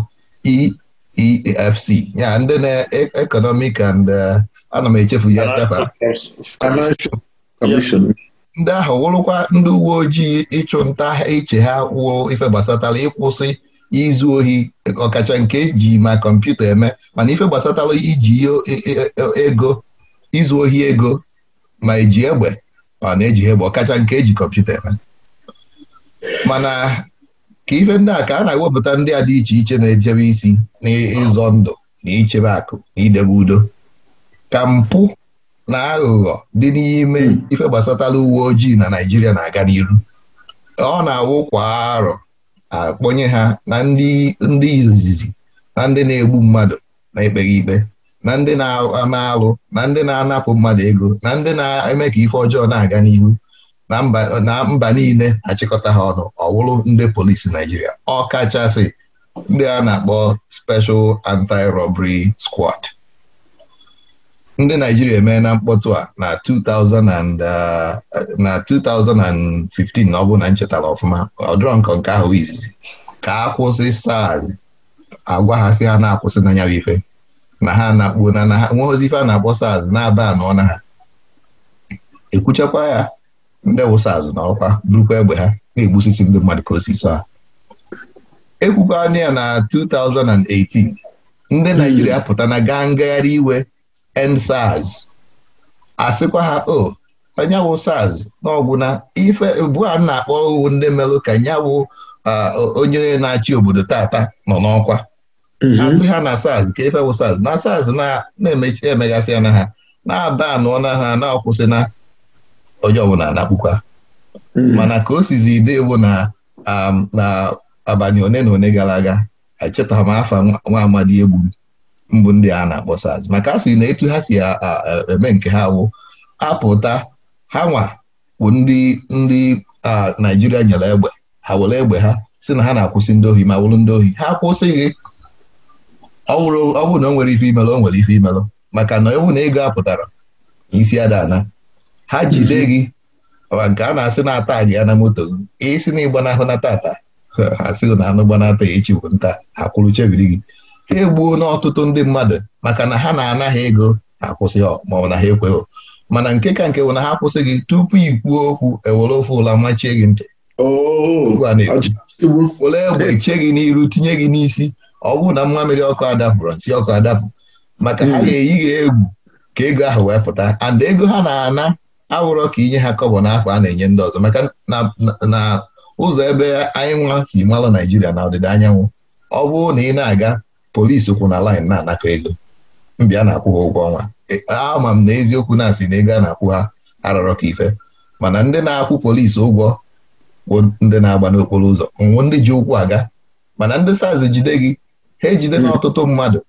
Speaker 1: EEFC ya ndị na-economic e, and e, ana m echefu ya achafa ndị ahụ wụrụkwa ndị uwe ojii ịchụ nta iche ha wuo ife gbasatara ịkwụsị izu ohi ọkacha nke ji ma kọmputa eme mana ife gbasatara iji ego izu ohi ego ma eji egbe Ah, ọ na-eji egbe bụ ọkacha nke eji kọmputa eme mana ka ife ndị a ka a na-ewepụta ndị a dị iche iche na-ejebe isi n'ịzọ ndụ na ichebe akụ na idebe udo ka mpụ na aghụghọ dị n'ime ife gbasatara uwe ojii na Naijiria na-aga n'iru ọ na awụkwa kwa arọ akpọnye ha na ndị izizi na ndị na-egbu mmadụ na-ekpeghị ikpe na ndị na-ama alụ na ndị na-anapụ mmadụ ego na ndị na-eme ka ife ọjọọ na-aga n'ihu na mba niile achịkọta ha ọnụ ọwụrụ ndị polisi Naijiria ọkachasị ndị a na-akpọ Special Anti-Robbery Squad ndị Naijiria emee na mkpọtụ a na 2015 uh, na ọ bụ na nchetara ọfụma ọdụrọ nkọ nke ahụ izizi ka akwụsị kwụsị ha na-akwụsị na ife na ha na akpụ na ha nwe ozi ife a na-akpọ saz na-aba anọ na ha ekwuchakwa ya ndị wụsaz na ọkwa burukwa egbe ha na-egbusisi ndị mmadụ ka osisi a ekwukwana ya na 2018 ndị hmm. Naijiria pụta na gaa ngagharị iwe ensaz asịkwa ha o oh, onye wụ saz n'ọgwụ na ife bua na-akpọ owu ndị melụ ka nya uh, onye na-achị obodo tata nọ n'ọkwa Mm-hmm. asị ha na SARS ka ife bụ SARS na SARS na-emechi emegasịa na ha na-ada anụọ na ha na-akwụsị na onye ọbụla na-akpụkwa mm-hmm. mana ka o sizi ide bụ na um, na abanye one na one gara aga echetaghị m afa nwa amadi egbu mbụ ndị a na-akpọ SARS maka a sị na etu ha si eme nke ha bụ apụta ha nwa bụ ndị ndị Naijiria nyere egbe ha were egbe ha si na ha na-akwụsị ndị ohi ma wụrụ ndị ohi ha akwụsịghị ọ bụrụ na o nwere ife imelụ o nwere ife imelụ maka na ọ bụ na ego apụtara isi adana ha jide mhm. gị ma nke a na-asị na-ata gị ya na moto gị isi na ịgbanahụ na tata ha sịghị na anụ gbanata ya echi bụ nta akwụrụ kwụrụ chebiri gị ha egbuo ọtụtụ ndị mmadụ maka na ha na-ana ha ego ha ma ọ bụ na ha ekweghị mana nke ka nke bụ na ha akwụsị gị tupu ikpuo okwu ewere ofe ụla machie gị ntị oh, were egbe che gị n'iru tinye gị n'isi ọ bụrụ na mmamịrị ọkụ adapụrụ nsị ọkụ adapụ maka ha ga-eyi hmm. gị egwu ka ego ahụ wee pụta and ego ha na-ana awụrọ ka inye ha kọbọ n'afọ a na-enye ndị ọzọ maka na ụzọ ebe anyị nwa si mara Naijiria na ọdịda anyanwụ ọ bụrụ na ị na-aga polisi kwụ na laịn na-anakọ ego mbịa na-akwụ ha ụgwọ ọnwa e, ama m na eziokwu na-asị na ego a na-akwụ ha arọrọ ka ife mana ndị na-akwụ polisi ụgwọ bụ ndị na-agba n'okporo ụzọ nwụ ndị ji ụkwụ aga mana ndị saz jide gị ha ejide hmm. n'ọtụtụ mmadụ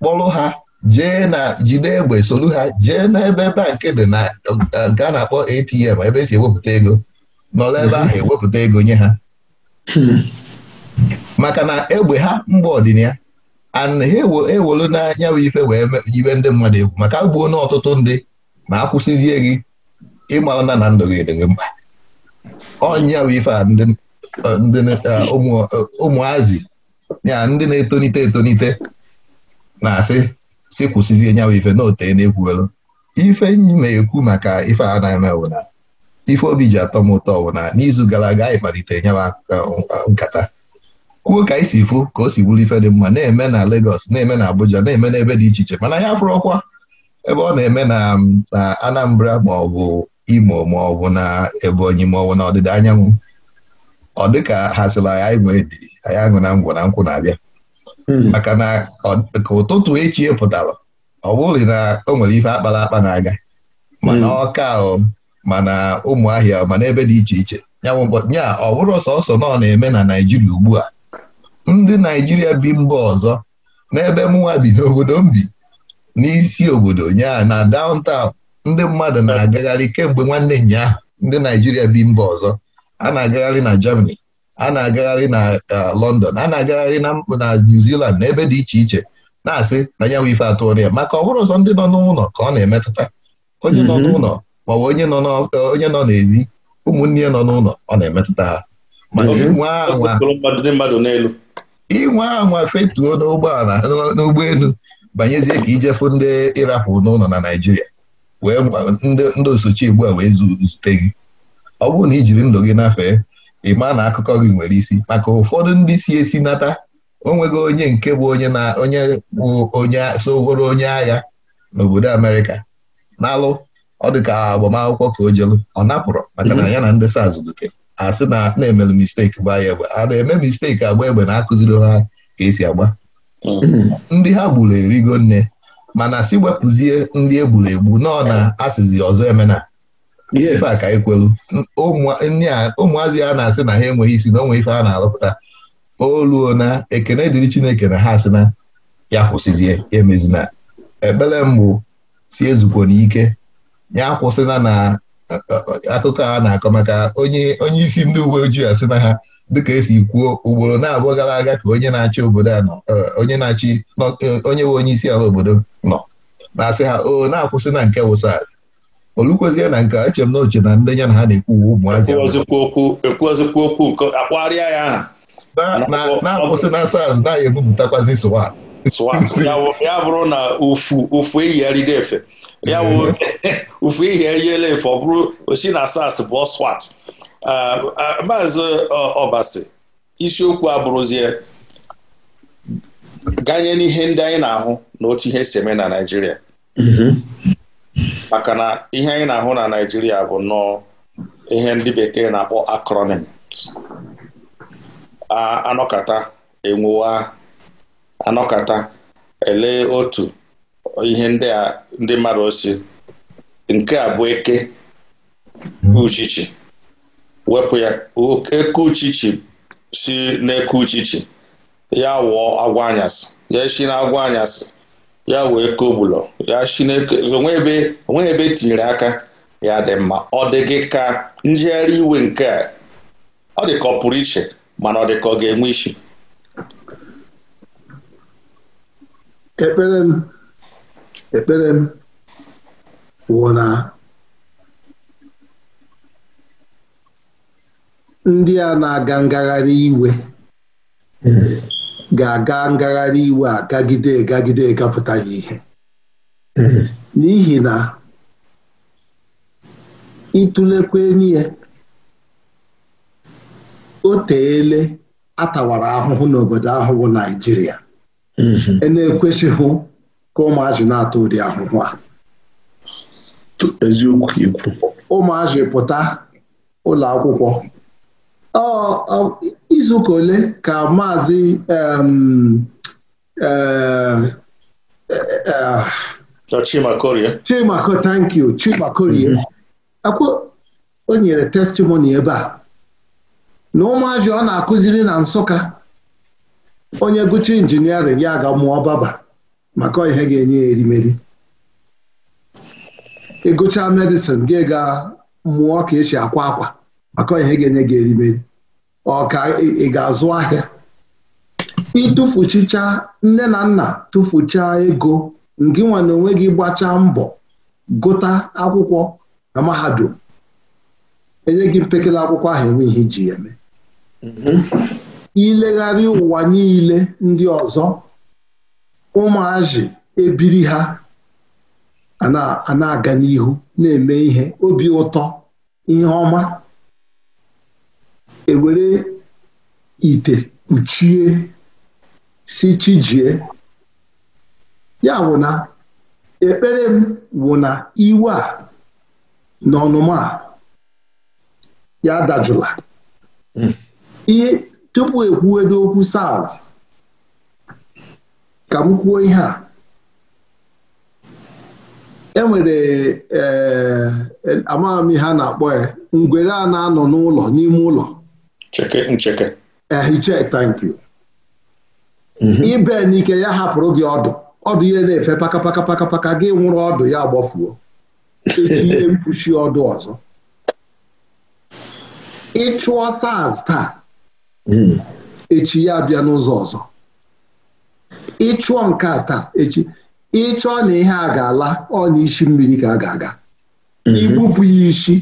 Speaker 1: kpọrọ ha jee na jide egbe soru ha jee n'ebe bankị dị na eh, nke a na-akpọ ATM ebe esi ewepụta ego nọrọ ebe ahụ hmm. ewepụta ego nye ha hmm. maka na egbe ha mgbe ọdịniha and ha ewolu n'anya bụ ife wee jibe ndị mmadụ egwu maka gbuo n'ọtụtụ ọtụtụ ndị ma akwụsịzie gị ịmara na na ndụ gị mkpa ọnya bụ ife a ndị eh, eh, ụmụazị ya ndị na-etonite etonite na-asị si kwụsịzie nyawa ife na ote na-ekwuelu ife na-ekwu maka ife a na-eme na ife obi ji atọ m ụtọ wụ na n'izu gara aga anyị kpalite nyawa nkata kwuo ka isi si fụ ka o si wuru ife dị mma na-eme na Lagos na-eme na Abuja na-eme n'ebe dị iche iche mana ya fụrụ ọkwa ebe ọ na-eme na Anambra ma ọ bụ Imo ma ọ bụ na Ebonyi ma ọ bụ na ọdịda anyanwụ ọ dịka hazila anyị nwere dị anyị aṅụ na ngwọ na nkwụ na-abịa hmm. maka na ka ụtụtụ echi pụtara ọ bụrụ na o nwere ife akpara akpa na-aga hmm. mana ọka ahụ mana ụmụ ahịa mana ebe dị iche iche nya ọ bụrụ sọsọ nọ na-eme na Naijiria ugbu a ndị Naijiria bi mba ọzọ n'ebe mụnwa bi n'obodo m bi n'isi obodo nya na downtown ndị mmadụ na-agagharị kemgbe nwanne nyaa ndị Naijiria bi mba ọzọ a na-agagharị na Germany a na-agagharị na uh, London a na-agagharị na New Zealand na ebe dị iche iche na-asị na ya nwe ife atụrụ ya maka ọ bụrụ ụzọ ndị nọ n'ụlọ ka ọ na-emetụta onye nọ mhm. n'ụlọ ma ọ bụ onye nọ n'ezi ụmụnne ya nọ n'ụlọ ọ na-emetụta ha inwe anwa fetuo n'ụgbọala n'ụgbọelu banyezie ka ijefu ndị ịrapụ n'ụlọ na naijiria wee ndị osochi ugbu a wee zute gị ọ bụrụ na i jiri ndụ gị nafee ị maa na akụkọ gị nwere isi maka ụfọdụ ndị si esi nata onwego onye nke bụ onye na onye bụ onye soworo onye agha n'obodo Amerịka n'alụ ọ dị ka agbamakwụkwọ ka o jelu ọ napụrụ maka na ya na ndị SARS zụlite a sị na na-emelu misteki gbaa ya egbe a na-eme misteki agba egbe na-akụziri ha ka esi agba ndị ha gburu erigo nne mana si wepụzie ndị egburu egbu nọ na asịzi ọzọ emena ife a ka anyị kwelu ụmụazị a na-asị na ha enweghị isi na onwe ife a na-arụpụta oluo na ekene dịrị Chineke na ha asị na ya kwụsịzie emezina ekpere mbụ si ezukwo n'ike ya kwụsịna na eh, akụkọ a na-akọ maka onye isi ndị uwe ojii asị na ha dịka esi kwuo ugboro na-abụọ gara aga ka onye na-achị obodo a nọ eh, onye na-achị eh, onye nwe onye isi ala obodo nọ na-asị ha o na-akwụsị na nke wụsaz olukwezie na nke eche m na oche na ndị na ha na-ekwu ụmụazị
Speaker 2: ekwuozikwa okwu nke akpagharịa ya na-akwụsị na SARS na
Speaker 1: ebupụtakwazi swat
Speaker 2: ya bụrụ na ufu eyigharịgo efe ya bụ ufu eyigharịela efe ọ bụrụ osi na SARS bụ swat maazị ọbasi isiokwu abụrụzie ganye n'ihe ndị anyị na-ahụ na otu ihe si eme na Naịjirịa maka na ihe anyị na-ahụ na Naịjirịa bụ nnọọ ihe ndị bekee na-akpọ akronim anọkata enwuwa anọkata elee otu ihe ndị a ndị mmadụ osi nke a bụ eke uchichi wepụ ya eke uchichi si n'eke uchichi ya wụọ agwa ya esi na agwa anyasị ya wee kogbulọ ya chineke onwe ebe e tinyere aka ya dị mma ọ dịghị gị ka njegharị iwe nke a ọ dị ka ọ pụrụ iche mana ọ dị ka ọ ga-enwe isi
Speaker 3: ekpere m ekpere m wụ na ndị a na-aga ngagharị iwe ga-aga ngagharị iwe a gagide gagide gapụtaghị ihe hmm. n'ihi na ịtụlekwa n'ihe o teele atawara ahụhụ n'obodo ahụhụ Naijiria hmm. e na-ekwesịghị ka ụmụazị na-ata ụdị ahụhụ a eziokwu ikwu ụmụazị pụta ụlọ akwụkwọ izuụka ole ka maazị e, e, e, Chimako eh? tankyu Chimakorie eh. o nyere testimoni ebe a na ụmụazị ọ na-akụziri na Nsụka onye gụcha injiniarịn ya ga mụọ baba maka ihe ga-enye ya erimeri ịgụcha medịsin gị ga mụọ ka esi akwa akwa maka ihe ga-enye gị erimeri ọ ka ị ga-azụ ahịa ịtụfuchicha nne na nna tụfucha ego nke nwa na onwe gị gbachaa mbọ gụta akwụkwọ na mahadum enye gị mpekele akwụkwọ ahụ enwe ihe iji ya eme mhm. ilegharị ụwa niile ndị ọzọ ụmụazị ebiri ha a na-aga n'ihu na-eme ihe obi ụtọ ihe ọma ewere ite kpuchie si chijie ya wụ na ekpere m wụ na iwe a na ọnụma a ya dajụla ihe tupu ekwuwedo okwu SARS ka m kwuo ihe a enwere ee eh, eh, amaghị m ihe a na-akpọ ya eh, ngwere a na-anọ n'ụlọ n'ime ụlọ Cheke ncheke. Um Ehiche thank you. Ibe n'ike ya hapụrụ gị ọdụ ọdụ ihe na-efe paka paka paka paka gị nwụrụ ọdụ ya gbafuo echi ihe mkpuchi ọdụ ọzọ ịchụọ SARS taa echi ya abịa n'ụzọ ọzọ ịchụọ nke taa echi ịchọọ na ihe a ga-ala ọ na isi mmiri ka a ga-aga igbupụ ya isi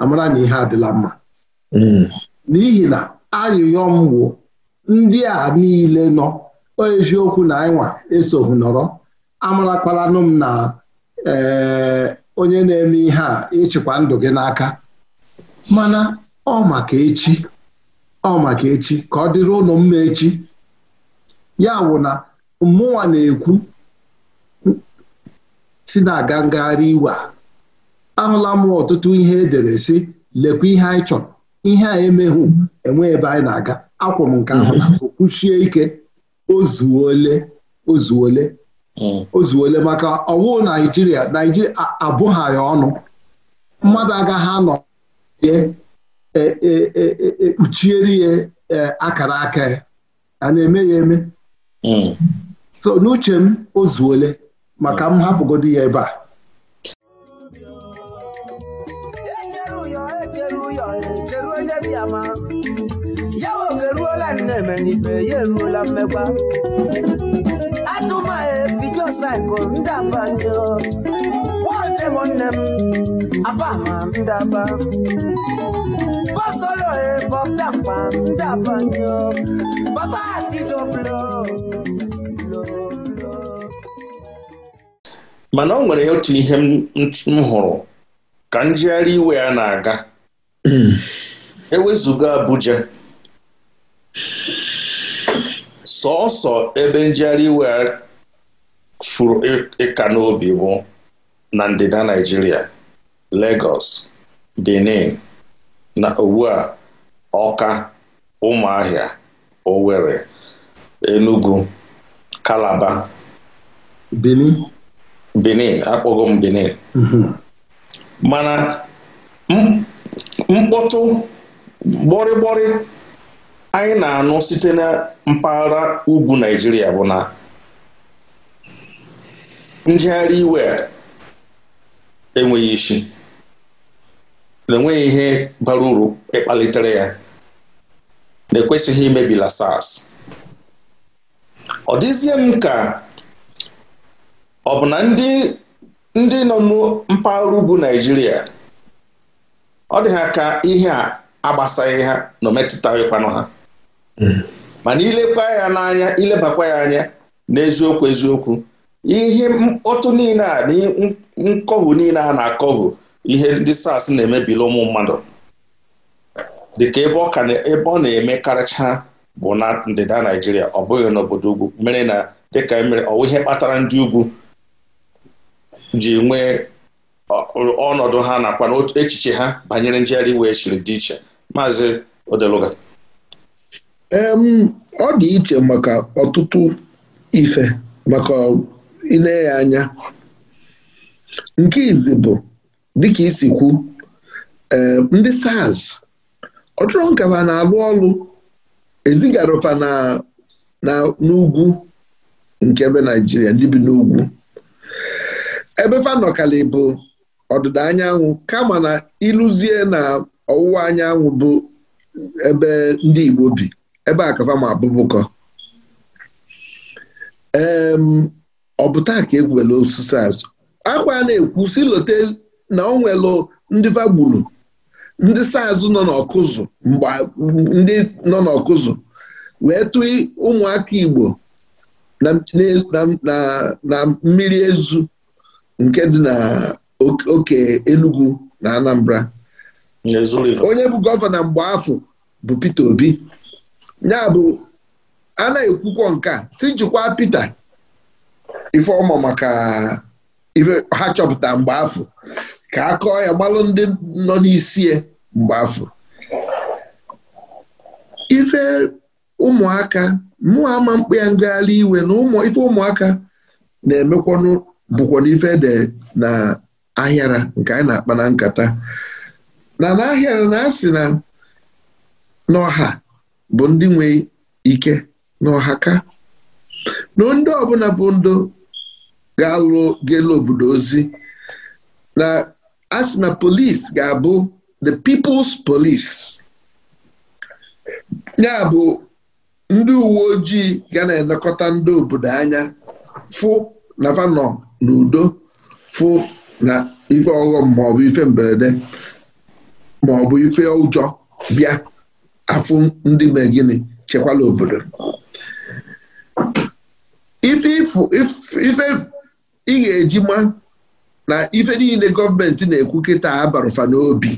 Speaker 3: amara na ihe adịla mma mm. n'ihi na ayụyọ m wụ ndị a niile nọ eziokwu na anyịnwa esoghi nọrọ amarakwalanụ m na eh, onye na-eme ihe a ịchịkwa ndụ gị n'aka mana ọ maka echi ọ maka echi ka ọ dịrị ụlọ mma echi ya wụ na mụnwa na-ekwu si na-aga ngagharị iwe a ahụla m ọtụtụ ihe edere si lekwa ihe anyị chọrọ ihe a emeghụ enwe ebe anyị na-aga akwụ nke ahụ mhm. na kwuchie ike ozuole ozuole mm. ozuole maka ọwụ naijiria naijiria abụghị ya ọnụ mmadụ agaghị anọ ekpuchiere ya e, e, e, akara aka ya a na-eme ya eme mm. so n'uche m ozuole maka m hapụgodu ya ebe a
Speaker 1: na ya eruola mmekwa e,
Speaker 2: mana ọ nwere otu ihe m hụrụ ka njegharị iwe ya na-aga hmm. ewezuga Abuja sọọsọ ebe njegharị iwe furu ịka e, e n'obi bụ na ndịda Naịjirịa Lagos Benin na ugbu a Ọka Ụmụahịa Owerri Enugu Kalaba Benin Benin akpọgo Benin mhm. mana mkpọtụ gborigbori. anyị na-anụ site na mpaghara ugwu Naịjirịa bụ na njegharị iwe enweghị isi na-enweghị ihe bara uru ịkpalitere ya na-ekwesịghị imebila SARS ọ dịzie m ka ọ bụ na ndị ndị nọ mpaghara ugwu Naịjirịa ọ dịghị aka ihe a agbasaghị ha na o ha mana ilekwa ya n'anya ilebakwa ya anya n'eziokwu eziokwu ihe mkpọtụ niile a na nkọhu niile a na-akọhu ihe ndị SARS na-emebili ụmụ mmadụ dịka ebe ọ na-eme karịcha bụ na ndịda Naijiria ọ bụghị n'obodo ugwu mere na dịka e mere ọwụ ihe kpatara ndị ugwu ji nwee ọnọdụ ha nakwa echiche ha banyere njegharị iwe chiri e dị iche maazị Odeluga
Speaker 3: ọ dị iche maka ọtụtụ ife maka ile ya anya nke izi bụ dịka isi kwu ndị SARS ọ chọrọ na-alụ ọlụ ezigarofa n'ugwu nke ebe Naijiria ndị bi n'ugwu ebe fanọkali bụ ọdịda anyanwụ kama na ịlụzie na ọwụwa anyanwụ bụ ebe ndị Igbo bi ebe a kafa ma abụbụkọ ọ bụ taa ka egwuele osisi azụ akwa na-ekwu si lote na ọ nwelụ ndị fagburu ndị saazụ nọ n'ọkụzụ mgbe ndị nọ n'ọkụzụ wee tụọ ụmụaka Igbo na mmiri ezu nke dị na oke Enugu na Anambra onye bụ gọvanọ mgbe afọ bụ pete Obi ya bụ a na-ekwukwọ nke a si jikwa Pita ifeọma maka ife ha chọpụta mgbe afọ ka a kọọ ya gbalụ ndị nọ n'isi ya mgbe afọ ife ụmụaka mmụọ ama mkpa ya ngagharị iwe na ife ụmụaka na-emekwanụ bụkwa n'ife de na ahịara nke anyị na-akpa na nkata na na-ahịara na-asị na n'ọha bụ ndị nwe ike n'Ọhaka, na ndị ọbụla bụ ndụ ga-alụ gelu obodo ozi na asị na ga-abụ the people's police ya bụ ndị uwe ojii ga na-elekọta ndị obodo anya fụ na vanọ na udo fụ na ife ọghọm maọbụ ife mberede maọbụ ife ụjọ bịa afụ ndị mee gịnị chekwala obodo ife ị ga-eji ma na ife niile gọọmenti na-ekwu kịta abarụfa n'obi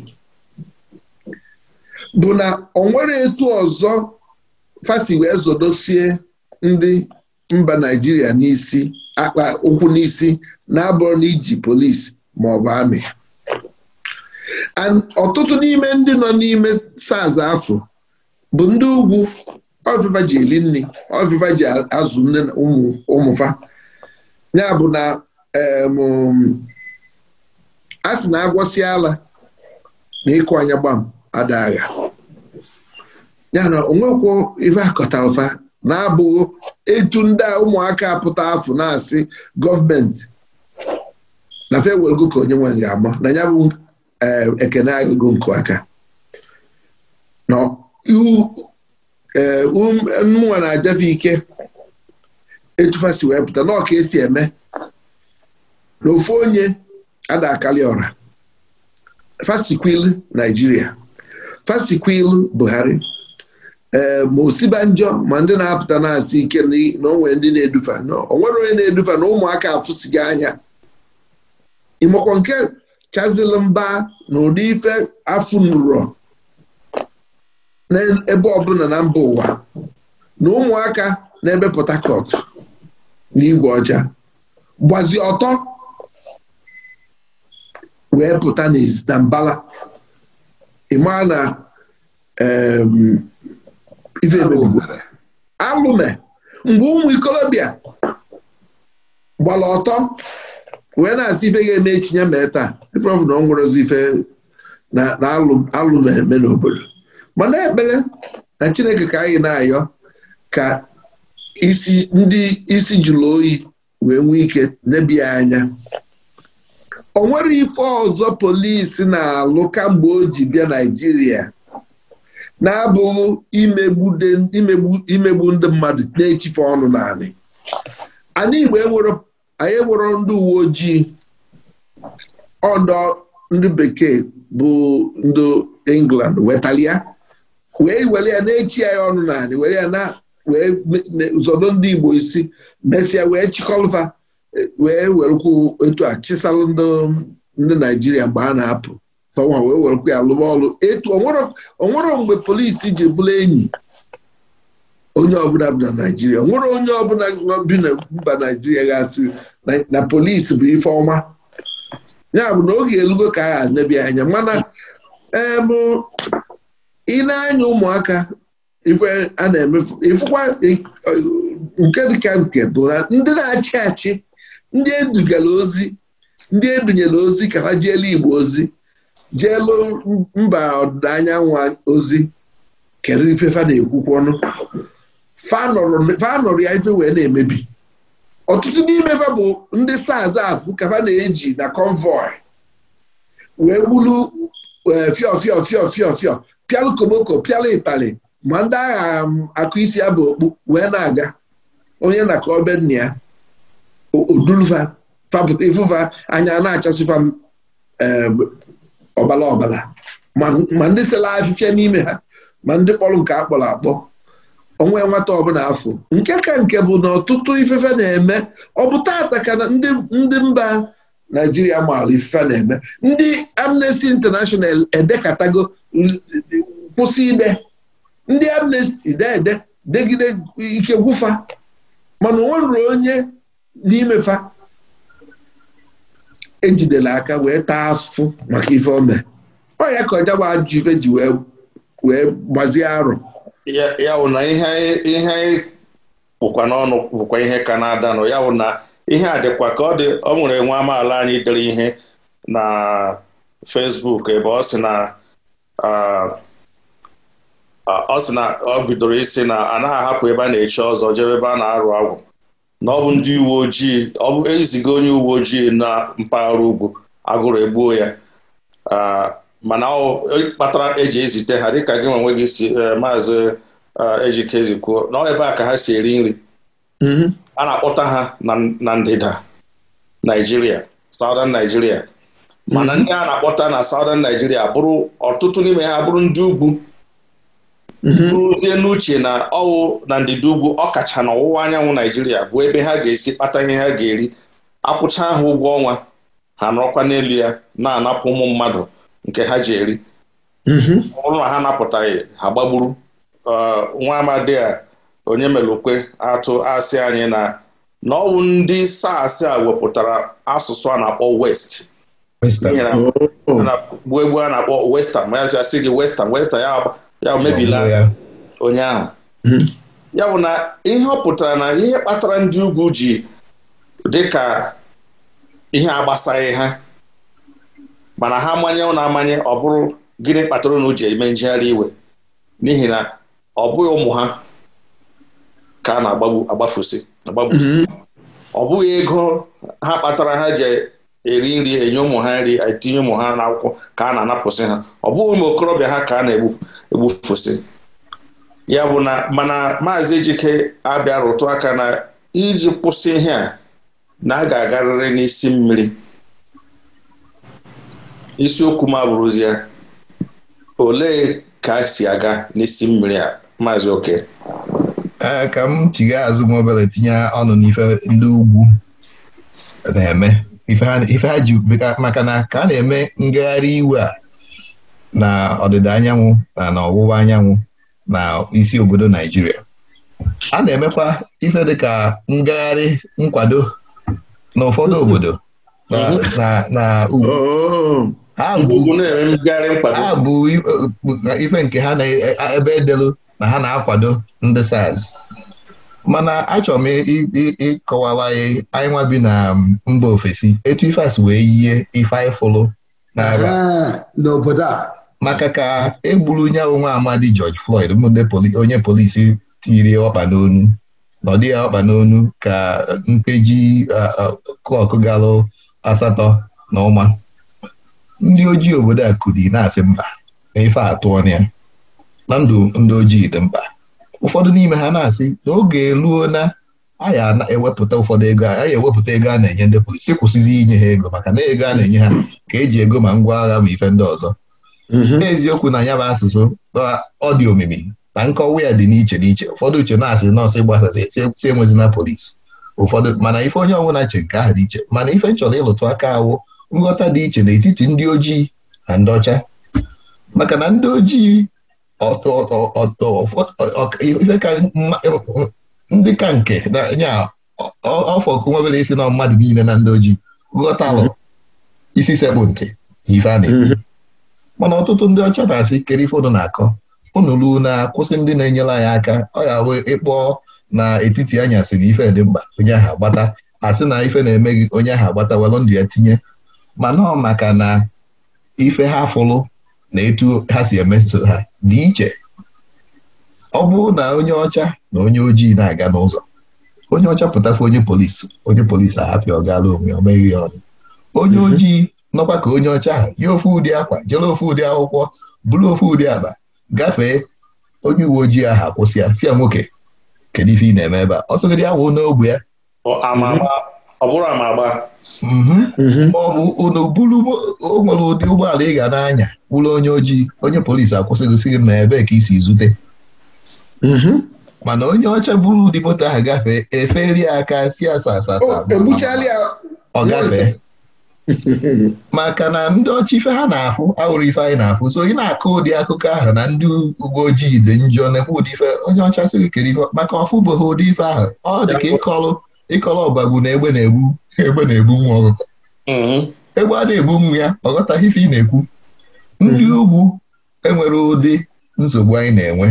Speaker 3: bụ na ọ nwere etu ọzọ fasi wee zodosie ndị mba Naijiria n'isi akpa ụkwụ n'isi na-abụrụ na iji polisi ma ọ bụ amị ọtụtụ n'ime ndị nọ n'ime saz afọ bụ ndị ugwu ọvịva ji eli nri ọvịva ji azụ nne ụmụ ụmụfa ya bụ na a sị na agwọsị ala na ịkụ anya gbam ada agha ya na onwekwo ife akọtara na-abụghị etu ndị ụmụaka pụta afọ na-asị gọọmenti na fewelgo ka onye nwe ga-ama na ya bụ ekene agụgo nke aka Eh, nwa na-ajafe ike etufasi wee pụta na esi eme na onye ada akali ọra fasikwil Naijiria fasikwil Buhari ee eh, ma osibanjọ ma ndị na-apụta na-asị ike na ndị na-edufe onwere onye na-edufe na ụmụaka afụsighị anya ịmakwa nke chazilmba mba na ụdị ife afụ nrọ n'ebe ọbụla na mba ụwa na ụmụaka na-ebe Port Harcourt na igwe ọcha gbazi ọtọ wee pụta na mbala ịmaa na ife alụme mgbe ụmụ ikolobịa gbara ọtọ wee na-asị ife ga-eme echi ya mee taa ife ọfụ na ọ nwụrụzi ife na alụme eme n'obodo mana ekpere na Chineke ka anyị na-ayọ ka isi ndị isi jụrụ oyi wee nwee ike nebia anya o nwere ife ọzọ polisi na-alụ kamgbe o ji bịa Naịjirịa na-abụghị imegbu ndị mmadụ na-echife ọnụ naanị anyị anyị enwero ndị uwe ojii ọdọ ndị bekee bụ ndị England wetalia wee were ya na-echi ya ọnụ naanị were ya na wee zọdo ndị Igbo isi mesịa wee chịkọlva wee werekwu etu a chisalụ ndị Naijiria mgbe a na-apụ tọnwa wee werekwu ya lụba ọrụ etu onwere mgbe polisi ji bụla enyi onye ọbụla bi na Naijiria onwere onye ọbụla bi na mba Naijiria gasị na polisi bụ ife ọma ya bụ na oge elugo ka a ga-anebia anya mana ee ị na-anya ụmụaka ife a na-emefu ịfụkwa nke dịka nke bụ na ndị na-achị achị ndị edugara ozi ndị edunyere ozi ka ha jeelu Igbo ozi jeelu mba ọdịda anyanwụ ozi kedu ife fa na-ekwukwu ọnụ fa nọrọ ya ife wee na-emebi ọtụtụ n'ime fa bụ ndị saz afụ ka fa na-eji na convoy wee gburu fiọ e, fịọ fiọ fiọ fiọ pịalụ koboko pịalụ itali ma ndị agha um, akụ isi ya bụ okpu wee na-aga onye na ka obe nna ya odulva fapụta anya na-achasịfa um, ọbala ọbala ma ndị sela afịfịa n'ime ha ma ndị kpọrọ nke akpọrọ akpọ onwe nwata ọbụla afọ nke ka nke bụ na ọtụtụ ifefe na-eme ọ bụ taata ka ndị mba naijiria maara ifefe na-eme ndị amnesty international e-, e-, edekatago kwụsị ime ndị amnesty na-ede degide ike gwụfa mana o nwere onye n'imefa ejidela aka wee taa afụ maka ife ome ọ ka ọjagba ajụ ife ji wee gbazie arụ
Speaker 2: ya wụ na ihe bụkwa n'ọnụ bụkwa ihe ka na-adanụ ya wụ na ihe a dịkwa ka ọ dị ọ nwere nwa amaala anyị dere ihe na fesbuk ebe ọ sị na Uh, uh, ọ sị na ọ bidoro isi na a naghị ahapụ ebe a na-echi ọzọ jebe ebe a na-arụ agwụ na ọ bụ ndị uwe ojii ọ bụ eziga onye uwe ojii na mpaghara ugwu agụrụ egbuo ya uh, mana ọ kpatara eji ezite ha dịka gị nwe gị si maazị ejike kwuo na ebe a ka ha si eri nri mm-hmm. a na-akpọta ha na ndịda Naijiria Southern Naijiria mana mhm. ndị a na-akpọta na Southern Nigeria bụrụ ọtụtụ n'ime ha bụrụ ndị ugwu mhm. rụzie n'uche na ọwụ na ndịda ugwu ọkacha na ọwụwa anyanwụ Naijiria bụ ebe ha ga-esi kpata ihe ha ga-eri akwụcha ha ụgwọ ọnwa ha nọrọkwa n'elu ya na-anapụ ụmụ mmadụ nke ha ji eri mhm. ọbụrụ na ha napụtaghị ha gbagburu nwa amadi a onye melukwe atụ asị anyị na na ọwụ ndị SARS a wepụtara asụsụ a na-akpọ West bụ egwu a na-akpọ western ma ya chasị gị western western ya mebila onye ahụ ya bụ oh, hmm. na ihe ọ pụtara na ihe kpatara ndị ugwu ji dị ka ihe agbasaghị ha mana ha manye na amanye ọ bụrụ gịnị kpatara na ji eme njegharị iwe n'ihi na ọ bụghị ụmụ ha ka a na-agbafu agbafusi ọ bụghị hmm. ego ha kpatara ha ji eri nri enye ụmụ ha nri etinye ụmụ ha n'akwụkwọ ka a na-anapụsị ha ọ bụghị ụmụ okorobịa ha ka a na-egbufụsị ya bụ na mana maazị Ejike abịa rụtụ aka na iji kwụsị ihe a na a ga-agarịrị n'isi mmiri isiokwu m abụrụzi ya olee ka a si aga n'isi mmiri a maazị oke
Speaker 1: e, ka m azụ tinye ọnụ n'ife ndị ugwu na-eme ife maka na ka a na-eme ngagharị iwe a na ọdịda anyanwụ na ọwụwa anyanwụ na isi obodo Naijiria a na-emekwa ife dịka ngagharị nkwado na obodo na ugwu oh. ha bụ e, e, ife nke ha na e, ebe edelu na ha na-akwado ndị SARS mana achọrọ m ịkọwara anyị bi na um, mba ofesi etu ifeasị wee yie ife anyị fụlụ n'agha n'obodo a maka ka egburu nya onwe amadi George Floyd onye polisi tiri ọkpa n'onu na dị ya ọkpa n'onu ka mpeji klọk galụ asatọ na ụma ndị ojii obodo a kụrụ na-asị mba ife atụọ na ya na ndụ ndị ojii dị mkpa ụfọdụ n'ime ha na-asị na oge eruo na anyị ewepụta ụfọdụ ego anyị ewepụta ego a na-enye ndị polisi kwụsịzi inye ha ego maka na ego a na-enye ha ka eji ego ma ngwa agha ma ife ndị ọzọ mhm. n'eziokwu na ya bụ asụsụ ọ dị omimi na nkọwa ya dị n'iche n'iche ụfọdụ uche na-asị nọọsụ gbasasị si na polisi ụfọdụ mana ife onye ọbụla che nke ahụ dị iche mana ife nchọrọ ịlụtụ aka awụ nghọta dị iche n'etiti ndị ojii na ndị ọcha maka na ndị ojii ndị ka nke nya ọfọ nwa isi na mmadụ niile na ndị ojii ghọtalụ mhm. isi sekpụ ntị ivani mhm. mana ọtụtụ ndị ọcha na-asị kere ife na-akọ unu ruo na akwụsị ndị na-enyere anyị aka ọ ya we ịkpọ na etiti anyasị na ife dị mkpa onye ahụ agbata asị na ife na-emeghị onye ahụ agbata welụ ndụ ya tinye mana ọ maka na ife ha fụrụ na etu ha si emetụta ha dị iche ọ bụrụ na onye ọcha na onye ojii na-aga n'ụzọ onye ọcha pụtafe onye polisi onye polisi ahapịa ọ gaala onwe onye mhm. ojii nọkwa ka onye ọcha ha yi ofe ụdị akwa jere ofe ụdị akwụkwọ bụrụ ofe ụdị agba gafee onye uwe ojii ahụ akwụsị ya si ya nwoke kedu ife ị na-eme ebe a dị ya wụ n'ogbe ya mhm. ọ bụrụ amagba ma mhm. mhm. ọ bụ unu bụrụ o nwere ụdị ụgbọala ị ga na-anya bụrụ onye ojii onye polisi akwụsịgosị gị na ebee ka isi zute mhm. mana onye ọcha buru ụdị moto ahụ gafee eferi aka si asasa e ọ gafee maka na ndị ọcha ife ha na-afụ awụrụ ife anyị na-afụ so ị na-akọ ụdị akụkọ ahụ na ndị uwe ojii dị njọ na-ekwu ụdị ife onye ọcha sịrị kere ife maka ọfụbụghị ụdị ife ahụ ọ dị ka ịkọlụ ịkọla ọbagbu na egbe na-egbu egbe na-egbu nwa ọkụkọ mm-hmm. egbe a na-egbu nwa ya ọ ghọtaghị ife ị na-ekwu ndị mm-hmm. ugwu enwere ụdị nsogbu anyị na-enwe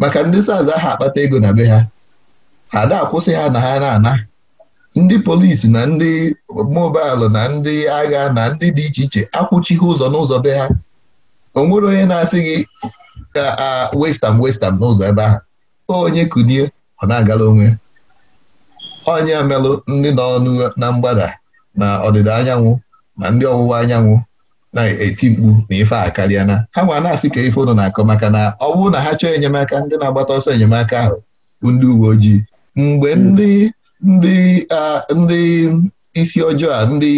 Speaker 1: maka ndị saza ha akpata ego na be ha ha da akwụsị ha na ha na-ana ndị polisi na ndị mobailụ na ndị agha na ndị dị iche iche akwụchighị ụzọ n'ụzọ be ha o nwere onye na-asị gị ka ah, a ah, westam westam n'ụzọ ebe ahụ onye kunie ọ na-agala onwe onye merụ ndị nọ na mgbada na ọdịda anyanwụ na ndị ọwụwa anyanwụ na-eti mkpu na ife a karịa na ha nwa na-asị ka ife ụnụ na-akọ maka na ọ bụrụ na ha chọọ enyemaka ndị na-agbata ọsọ enyemaka ahụ bụ ndị uwe ojii mgbe ndị ndị ndị isi ọjọọ a ndị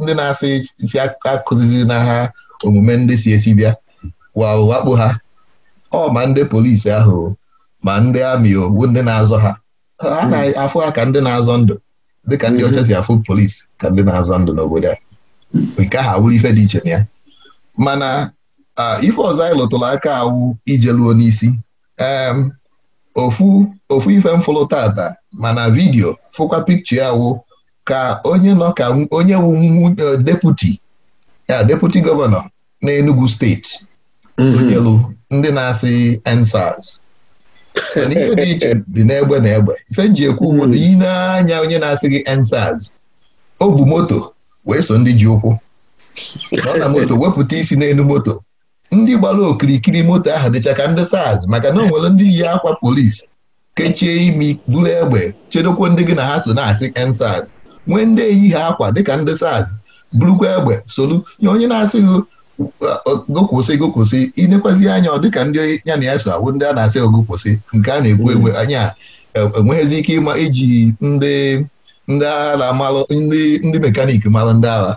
Speaker 1: ndị na-asị si akụzizi na ha omume ndị si esi bịa wakpo ha ọ ma ndị polisi ahụ ma ndị amị ogbu ndị na-azọ ha a na-afụ ha ka ndị na-azọ ndụ dịka ndị ọcha si afụ polisi ka ndị na-azọ ndụ n'obodo a nke ahụ awụrụ ife dị iche na ya mana ife ọzọ anyị lụtụrụ aka awụ ijeluo n'isi ofu ofu ife m fụrụ tata mana vidiyo fụkwa pikchọ ya ka onye nọ ka onye wụ e, deputi ya deputi gọvanọ na Enugu steeti mm-hmm. onyelu ndị na-asị EndSARS mana ihe dị iche dị n'egbe na egbe ife m ekwu ugbu hmm. na anya onye na-asị gị ensaz o bu moto wee so ndị ji ụkwụ nọ na moto wepụta isi n'elu moto ndị gbara okirikiri moto ahụ dịcha ka ndị saz maka na o nwere ndị yi akwa polisi kechie imi buru egbe chedokwa ndị gị na ha so na-asị ensaz nwee ndị eyi ha akwa dịka ndị saz bụrụkwa egbe solu nye onye na asị gị. gụkwụsị gụkwụsị inekwazi anya ọ dịka ndị ya na ya so awụ ndị a na-asị ogụkwụsị nke a na-ekwu hmm. anya enweghịzi e, ike ịma iji ndị ndị agha na ndị mekanik malụ ndị agha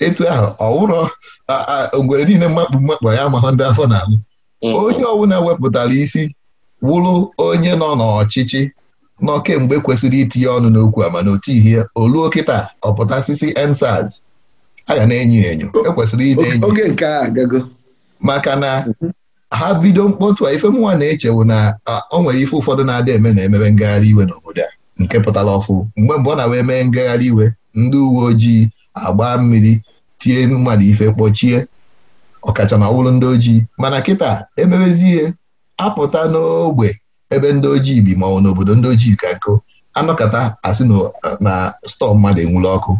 Speaker 1: etu ahụ ọ wụrọ niile mmakpụ mmakpu ya ma ndị afọ na-alụ mm. onye ọbụla wepụtara isi wụrụ onye nọ n'ọchịchị nọ kemgbe kwesịrị itinye ọnụ n'okwu a mana otu ihe oluo kịta ọpụtasisi ensaz a ga na-enyo enyo ekwesịrị ide enyo nke a maka na mm-hmm. ha bido mkpọtụ a ife mụnwa na-echewu na o nwere ife ụfọdụ na-adị eme na emebe ngagharị iwe n'obodo a nke pụtara ọfụ mgbe mgbe ọ na-wee mee ngagharị iwe ndị uwe ojii agba mmiri tie mmadụ ife kpọchie ọkacha na ọwụrụ ndị ojii mana kịta emebezi ihe apụta n'ogbe ebe ndị ojii bi ma ọ n'obodo ndị ojii ka nkụ anọkata asị na stọọ mmadụ enwuru ọkụ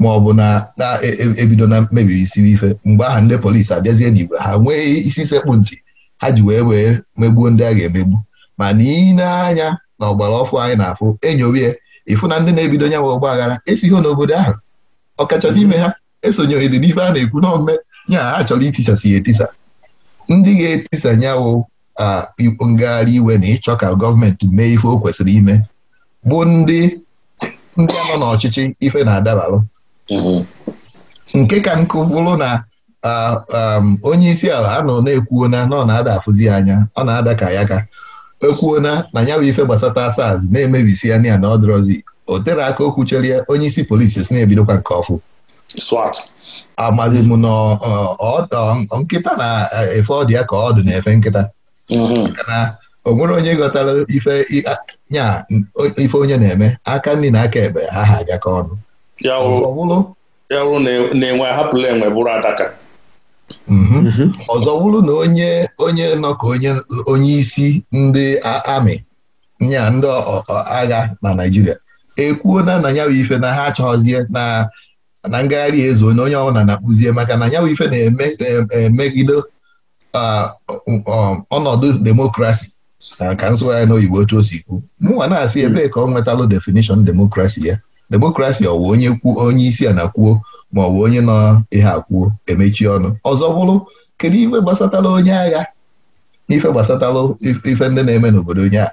Speaker 1: ma ọ bụ na na-ebido na mmebiri e, e, e isiri ife mgbe aha ndị polisi abịazie n'igwe ha nwee isi sekpụ ntị ha ji wee wee megbuo ndị a ga-emegbu ma na na-anya ọgbara ọfụ anyị na-afụ enyorie ịfụ na ndị na-ebido nyanwe ọgba aghara esighị n'obodo ahụ ọkacha n'ime ha esonyeghị dị n'ife a na-ekwu n'ọmme ya ha chọrọ itisasi ya etisa ndị ga-etisa nyawo ngagharị iwe na ịchọ ka gọọmenti mee ife o kwesịrị ime bụ ndị ndị nọ n'ọchịchị ife na-adabarụ mm-hmm. nke ka nkụ bụrụ na onye isi ala anọ nọ na-ekwuo na ọ na-ada afụzi anya ọ na-ada ka ya ka ekwuona na na ya bụ ife gbasata SARS na-emebisi ya na ya na ọ o tere aka okwu cherie onye isi polisi si na-ebidokwa nke ọfụ swat amazi m na nkịta e, na-efe ọdụ ya ka ọdụ na-efe nkịta mhm. na o nwere onye ghọtara ife nya ife onye na-eme aka nri na aka ekpe aha agaka ka ọnụ ọzọ wụrụ
Speaker 2: e, e
Speaker 1: mhm. mhm. na onye onye nọ ka onye isi ndị amị nya ndị agha na Naịjirịa Ekwuo na ya bụ ife na ha achọghọzie na na ngagharị ezo onye onye ọbụla na-akpụzie maka na ya bụ ife na-emegide um, um, ọnọdụ demokrasi ka nsụgharị n'oyibo otu o si kwu mụnwa na-asị hmm. ebee ka ọ nwetalụ definishọn demokrasi ya demokrasi ọ wụ onye kwuo onye isi a na kwuo ma ọ bụ onye nọ ihe akwuo emechi ọnụ ọzọ bụrụ kedu ife gbasatala onye agha ife gbasatalụ ife ndị na-eme n'obodo onye agha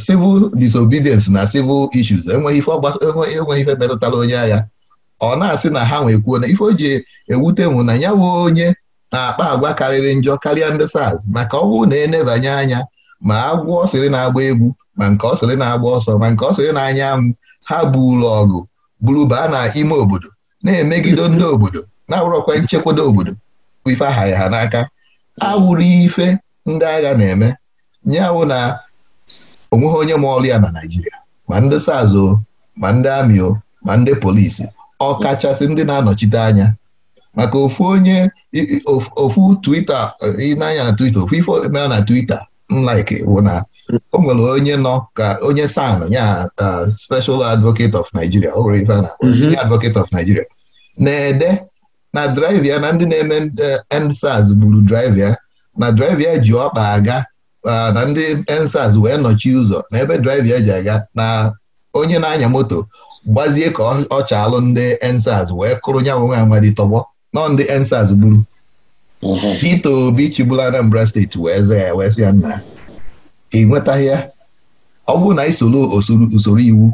Speaker 1: civil disobedience na civil issues enweghị ife enweghị ife metụtara onye agha ọ na-asị na ha nwekwuo na ife o ji ewute mụ na ya onye na-akpa agwa karịrị njọ karịa ndị SARS maka ọ na enebanye anya ma agwọ ọsịrị sịrị na-agba egwu ma nke ọ sịrị na-agba ọsọ ma nke ọ sịrị na-anya anwụ ha buru ọgụ bụrụ baa na ime obodo na-emegide ndị obodo na-awụrọkwa nchekwado obodo ife aha ha n'aka awụrụ ife ndị agha na-eme nyawụ na onweghị onye ma ọrụ ya na Naịjirịa ma ndị sazo ma ndị amị o ma ndị polisi kachasị ndị na-anọchite anya maka ofu onye ofu Twitter ịnanya na Twitter ofu ife omea na Twitter nlaiki bụ na o nwere onye nọ ka onye san ya special advocate of Nigeria o nwere ife a na mhm. of Nigeria na-ede na drive na ndị na-eme eh, end gburu drive na drive ji ọkpa aga Ah, na ndị ensas wee nọchi ụzọ na ebe draiva eji aga na onye na-anya moto gbazie ka ọ chaalụ ndị ensas wee kụrụ nya nwe amadi tọgbọ nọ ndị ensas gburu Peter mhm. Obi chigbula Anambra steeti wee zaa ya wee ya nna ị nwetaghị ya ọ bụrụ na isoro usoro iwu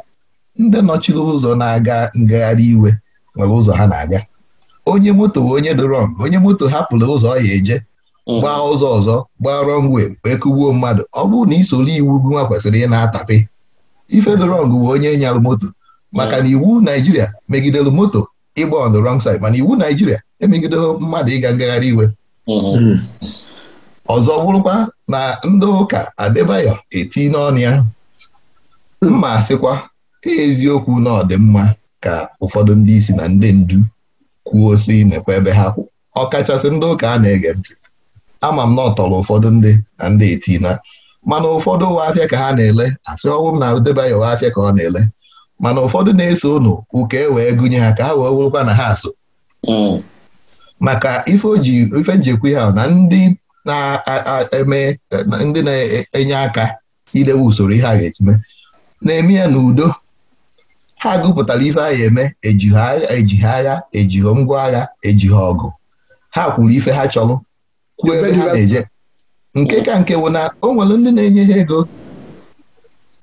Speaker 1: ndị nọchiri ụzọ na-aga ngagharị iwe nwere ụzọ ha na-aga onye moto onye doro onye moto hapụrụ ụzọ ọ ya eje gbaa mhm. ụzọ ọzọ gbaa rọngwe wee kụgbuo mmadụ ọ bụrụ na isoro iwu nwa kwesịrị ị na-atapị ife the wrong bụ onye nyarụ moto maka na mhm. iwu Naijiria megidere moto ịgba on the side mana iwu Naijiria emegidere mmadụ ịga ngagharị iwe mhm. hmm. ọzọ bụrụkwa na ndị ụka Adebayo eti n'ọnụ ya mma sịkwa eziokwu na ọ dị mma ka ụfọdụ ndị isi na ndị ndu kwuo si nekwa ebe ha kwụ ọ kachasị ndị ụka a na-ege ntị ama m na ọ tọrọ ụfọdụ ndị na ndị etina mana ụfọdụ ụwa afịa ka ha na-ele asị ọnwụ m na debaghị ụwa afịa ka ọ na-ele mana ụfọdụ na-eso ụnụ ụka e wee gụnye ha ka ha wee wụrụkwa na ha so mm. maka ife oji ife njikwa ha na ndị na-eme ndị na-enye aka idewe usoro ihe a ga-echime na-eme ya n'udo ha gụpụtara ife agha eme ejighị agha ejighị agha ejighị ngwa agha ejighị ọgụ ha kwuru ife ha chọrọ kwuo ebe ha na-eje nke ka nke bụ na o nwere ndị na-enye ha ego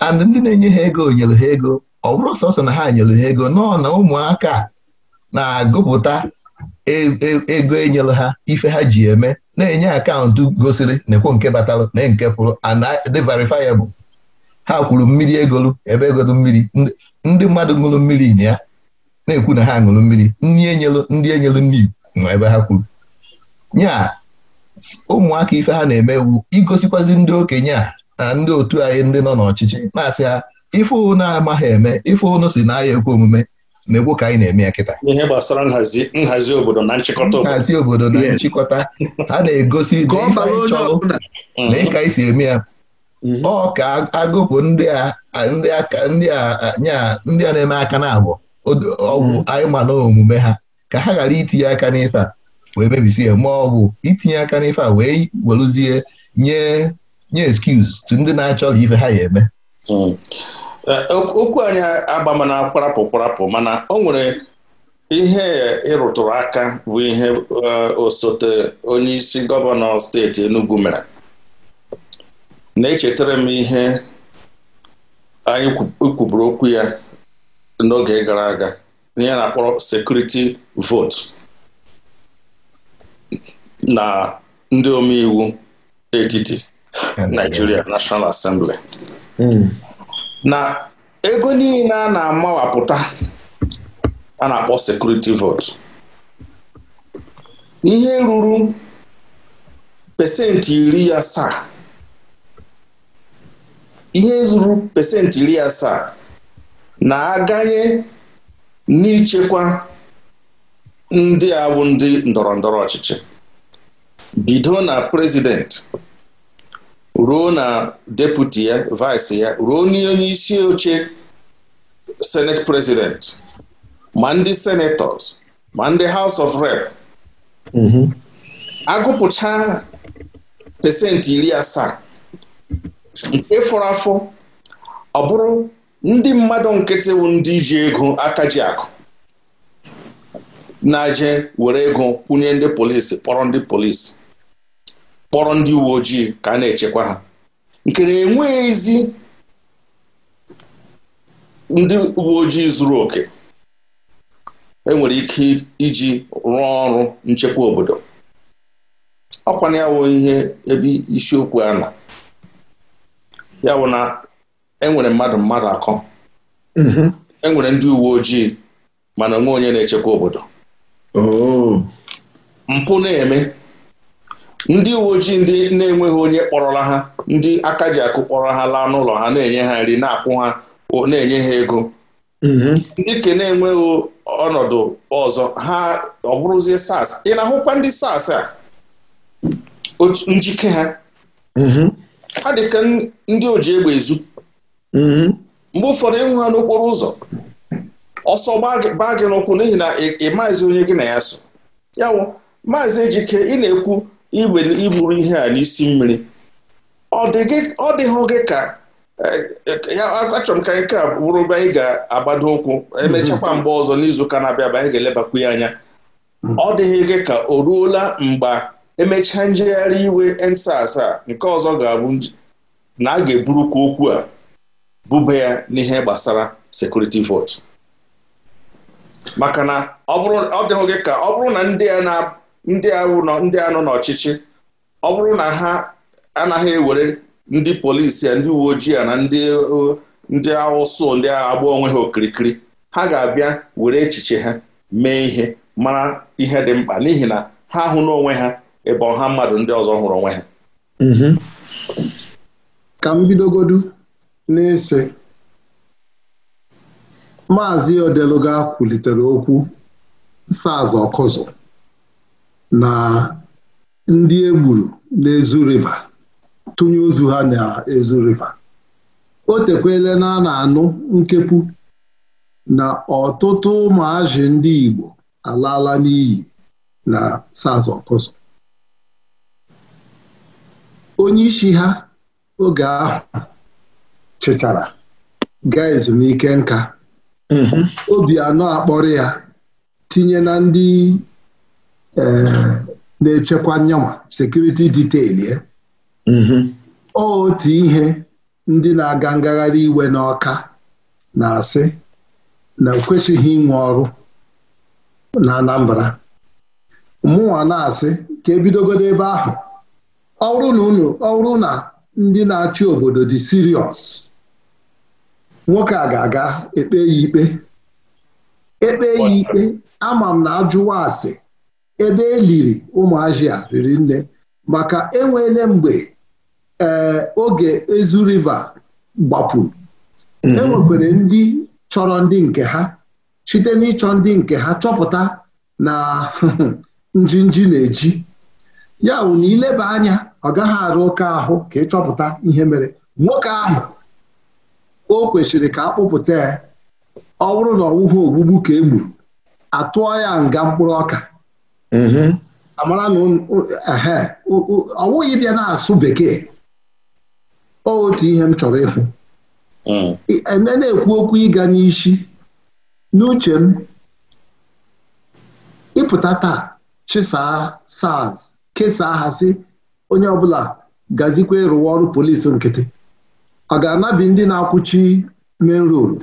Speaker 1: and ndị na-enye ha ego nyere ha ego ọ bụrụ sọsọ na ha nyere ha ego nọ na ụmụaka na-agụpụta e, e, ego enyere ha ife ha ji eme na-enye akaụntụ gosiri na-ekwo nke batalụ na nke pụrụ dị verifiable ha kwuru mmiri egolu ebe egolu mmiri ndị mmadụ ṅụrụ mmiri ya na-ekwu na ha ṅụrụ mmiri nri enyelu ndị enyelu nri nwa ebe ha kwuru nyaa ụmụaka ife ha na-eme igosikwazi ndị okenye a na ndị otu anyị ndị nọ n'ọchịchị na-asị ha ife ụnụ amaghị eme ife ụnụ si na ahịa ekwe omume na-ekwu ka anyị na-eme ya kịta ihe gbasara nhazi obodo na nchịkọta nhazi obodo na nchịkọta ha na-egosi na mm-hmm. na ịka anyị si eme ya mm-hmm. ọ ka agụpụ ndị a na-eme aka na abụọ ọgwụ mm-hmm. anyị ma na omume ha ka ha ghara itinye aka n'ife a wee mebisie ma ọ bụ itinye aka n'ife a wee weluzie nye nye excuse tu ndị na-achọ ife ha ya eme hmm.
Speaker 2: e, okwu anyị agba mana kparapụ kparapụ mana o nwere ihe ịrụtụrụ aka bụ ihe e, osote onye isi gọvanọ steeti Enugu mere na-echetara m ihe anyị kwuburu okwu ya n'oge gara aga ihe na-akpọrọ sekuriti votu na ndị omeiwu etiti Nigeria National Assembly hmm. na ego niile a na-amawapụta a na-akpọ sekuriti vot ihe ruru pesenti iri asaa ihe zuru pesenti iri asaa na-aganye n'ichekwa ndị awụ ndị ndọrọ ndọrọ ọchịchị bido na prezidenti ruo na deputi ya vaịsị ya ruo n'onye isi oche senet prezidenti ma ndị senetọs ma ndị haus of rep mm-hmm. agụpụcha pesenti iri asaa nke fọrọ afọ ọ bụrụ ndị mmadụ nkịtị ndị ji ego aka ji akụ na-aje were ego kwụnye ndị polisi kpọrọ ndị polisi kpọrọ ndị uwe ojii ka a na-echekwa ha nke na enweghịzi ndị uwe ojii zuru oke enwere ike iji rụọ ọrụ nchekwa obodo ọkwana ya wụ ihe ebe isiokwu a na ya e bụ na enwere mmadụ mmadụ akọ mm-hmm. enwere ndị uwe ojii mana onwe onye na-echekwa obodo oh. mpụ na-eme ndị uwe ojii ndị na-enweghị onye kpọrọla ha ndị aka ji akụ kpọrọ ha laa n'ụlọ ha na-enye ha nri na-akwụ ha na-enye ha ego mhm. ndị ke na-enweghị ọnọdụ ọzọ ha ọ bụrụzie sars ị na-ahụkwa ndị sars a njike ha mhm. ha dịka ndị oji egbe ezu mhm. mgbe ụfọdụ ịhụ ha n'okporo ụzọ ọsọ gbaa gị n'ụkwụ n'ihi na ị maazị onye gị na ya so ya wụ maazị ejike ị na-ekwu iburu ihe a n'isi mmiri ọ dịghị gị ka e, e, achọrọ m ka nke a bụrụ ebe anyị ga-agbado ụkwụ emechakwa mhm. mgbe ọzọ n'izuụka na-abịa abịa anyị ga-elebakwu ya anya mhm. ọ dịghị gị ka o ruola mgbe emechaa njegharị iwe ensas a nke ọzọ ga-abụ na a ga-eburukwa okwu a bụba ya n'ihe gbasara sekuriti votu maka na ọ dịghị gị ka ọ bụrụ na ndị a na ndị ndị anọ n'ọchịchị ọ bụrụ na ha anaghị ewere ndị polisi ya ndị uwe ojii ya na ndị ndị ndị agba onwe ha okirikiri ha ga-abịa were echiche ha mee ihe mara ihe dị mkpa n'ihi na ha ahụ n'onwe ha ebe ọha mmadụ ndị ọzọ hụrụ
Speaker 3: onwe ha mhm. ka m bidogodu ese maazị odeluga kwulitere okwu Nsọazụ Ọkụzụ na ndị e gburu n'Ezu riva tụnye ozu ha n'ezu riva o tekwele na a na-anụ nkepụ na ọtụtụ ụmụazị ndị Igbo alaala n'iyi na saz ọkụzọ onye isi ha oge ahụ chịchara gaa ezumike nka mm-hmm. obi anọ akpọrọ ya tinye na ndị Eh, na-echekwa nyanwa sekuriti diteil ya eh? mm-hmm. otu ihe ndị na-aga ngagharị iwe n'ọka na-asị na kwesịghị inwe ọrụ na Anambra mụnwa na-asị ka ebidogodo ebe ahụ ọrụ na ọrụ na ndị na-achị obodo dị siriọs nwoke a ga-aga ekpe ya ikpe ekpe ya ikpe ama m na ajụwa asị ebe eliri ụmụazia riri nne maka enweele mgbe ee eh, oge ezu riva gbapụrụ mm-hmm. e enwekwere ndị chọrọ ndị nke ha site n'ịchọ ndị nke ha chọpụta na njinji na-eji ya bụ na ileba anya ọ gaghị arụ ụka ahụ ka ịchọpụta ihe mere nwoke ahụ o kwesịrị ka akpụpụta ya ọ bụrụ na ọwụhụ ogbugbu ka e gburu atụọ ya nga mkpụrụ ọka Mm-hmm. amara na ọ bịa na-asụ bekee otu ihe m chọrọ ịhụ mm. eme na-ekwu okwu ịga n'isi n'uche m ịpụta taa chịsaa Sars kesaa ha sị onye ọbụla gazikwa ịrụwa ọrụ polisi nkịtị ọ ga-anabi ndị na-akwụchi main road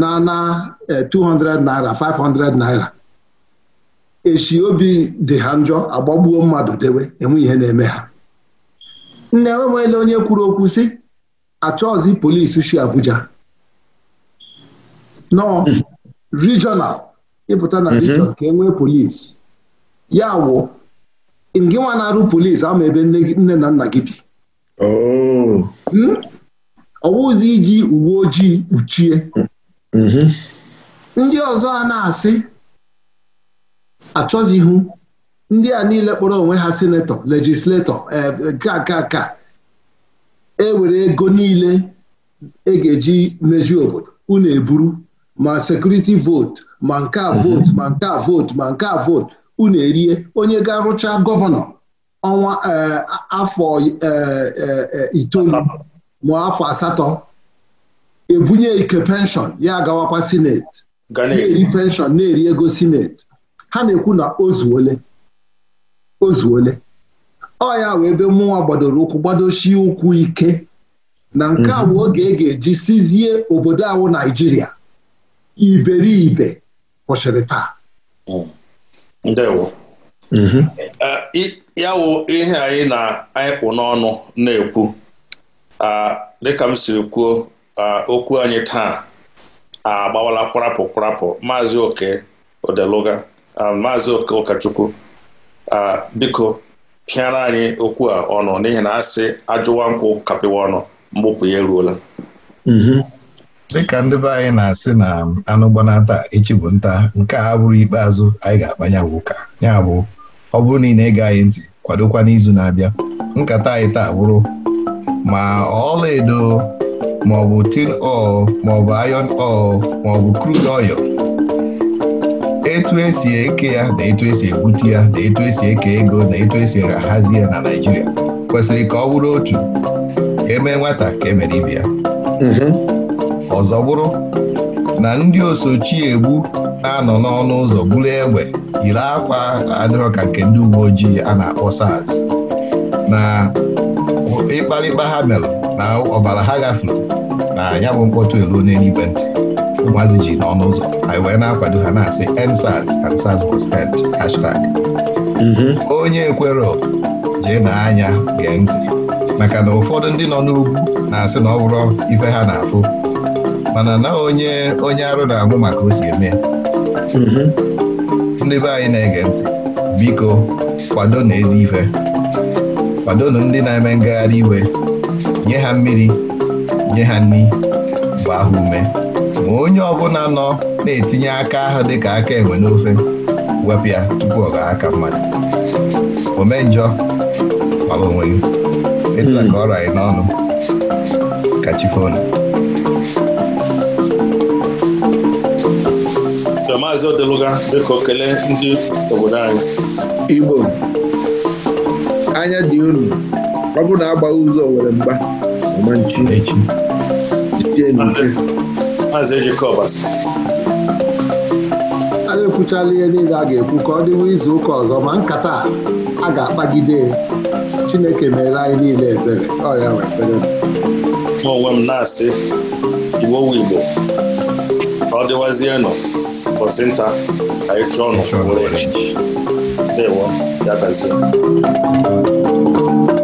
Speaker 3: na na 200 eh, naira 500 naira echi obi dị ha njọ agbagbuo mmadụ dewe enwe ihe na-eme ha nne enweele onye kwuru okwu si achọzi polis si Abuja nọ regional ịpụta na mhm. regional ka enwee polis ya wụ ngị nwa na-arụ polisi ama ebe nne na nna gị bi oh. hmm? ọwụzi iji uwe ojii uchie. Mm-hmm. ndị ọzọ a na-asị Achọzihu ndị a niile kpọrọ onwe ha senetọ lejisletọ eh, ka ka e were ego niile e ga-eji meji obodo unu eburu ma sekuriti vootu ma nke a mhm. vootu ma nke a vootu ma nke a vootu unu erie onye ga-arụcha gọvanọ ọnwa eh, afọ eh, itoolu ma afọ asatọ ebunye ike penshọn ya agawakwa sineti na-eri penshọn na-eri ego sineti ha na-ekwu na ozuole ozuole ọ ya wee ebe mmụọ gbadoro ụkwụ gbadochie ụkwụ ike na nke a bụ mhm. oge e ga-eji sizie obodo awụ Naijiria iberibe kwụsịrị taa
Speaker 2: mm. ndewo mhm. eh, ya wụ ihe anyị na-anyịpụ n'ọnụ na-ekwu ah, dịka m siri kwuo ah, okwu anyị taa ah, agbawala kwarapụ kwarapụ maazị oke odeluga Um, maazị ụkọchukwu uh, biko pịara anyị okwu a ọnụ n'ihi na asị ajụwa nkwụ kapịwa ọnụ mgbupụ ya eruola
Speaker 1: mhm. dịka ndị be anyị na-asị na anụ gbanata echi bụ nta nke a bụrụ ikpeazụ anyị ga-akpanya ụka ya bụ ọ bụrụ na ị na-ege anyị ntị kwadokwa n'izu na-abịa nkata anyị taa bụrụ ma ọla edo maọbụ tin ọl maọbụ iron ọl maọbụ krud oil etu esi eke ya na etu esi egbute ya na etu esi eke ego na etu esi ahazi ya na naijiria kwesịrị ka ọ bụrụ otu eme emee nwata ka emere ibe ya mhm. ọzọ bụrụ na ndị osochi egbu na-anọ n'ọnụ ụzọ gburu egbe yiri akwa adịrọ ka nke ndị uwe ojii a na-akpọ saz na ịkparịkpa ha mere na ọbara ha gafere na ya bụ mkpọtụ elu n'eluigwe ntị ụmụazị ji n'ọnụ ụzọ anyị wee na-akwado ha na-asị ensars and sars end hashtag onye ekwero jee na anya gee ntị maka na ụfọdụ ndị nọ n'ugwu na-asị na ọ bụrụ ife ha na-afụ mana na onye onye arụ na-amụ maka o si eme ndị be anyị na-ege ntị biko kwado na ezi ife kwadonu ndị na-eme ngagharị iwe nye ha mmiri nye ha nri gbaa ha ume ma onye ọbụla nọ na-etinye aka ahụ dịka aka enwe n'ofe wepụ ya tupu ọ gaa aka mmadụ ome njọ mara onwe gị etula ka ọrụ anyị n'ọnụ ka chi fonu maazị
Speaker 2: Odeluga dịka okele ndị obodo anyị
Speaker 3: Igbo anya dị unu ọ bụrụ na agbaghị ụzọ were mgba ọmanchi echi jijie
Speaker 2: n'ike Maazị Ejikobas
Speaker 3: anyị ekwuchala ihe niile a ga-ekwu ka ọ dịwa izu ụka ọzọ ma nkata a ga-akpagide Chineke mere anyị niile ebere ọ ya ekpere
Speaker 2: mụ onwe m na-asị Igbo wu Igbo ka ọ dịwazienụ ụbọchị nta ka anyị chụọ ọnụ were echi ya gazie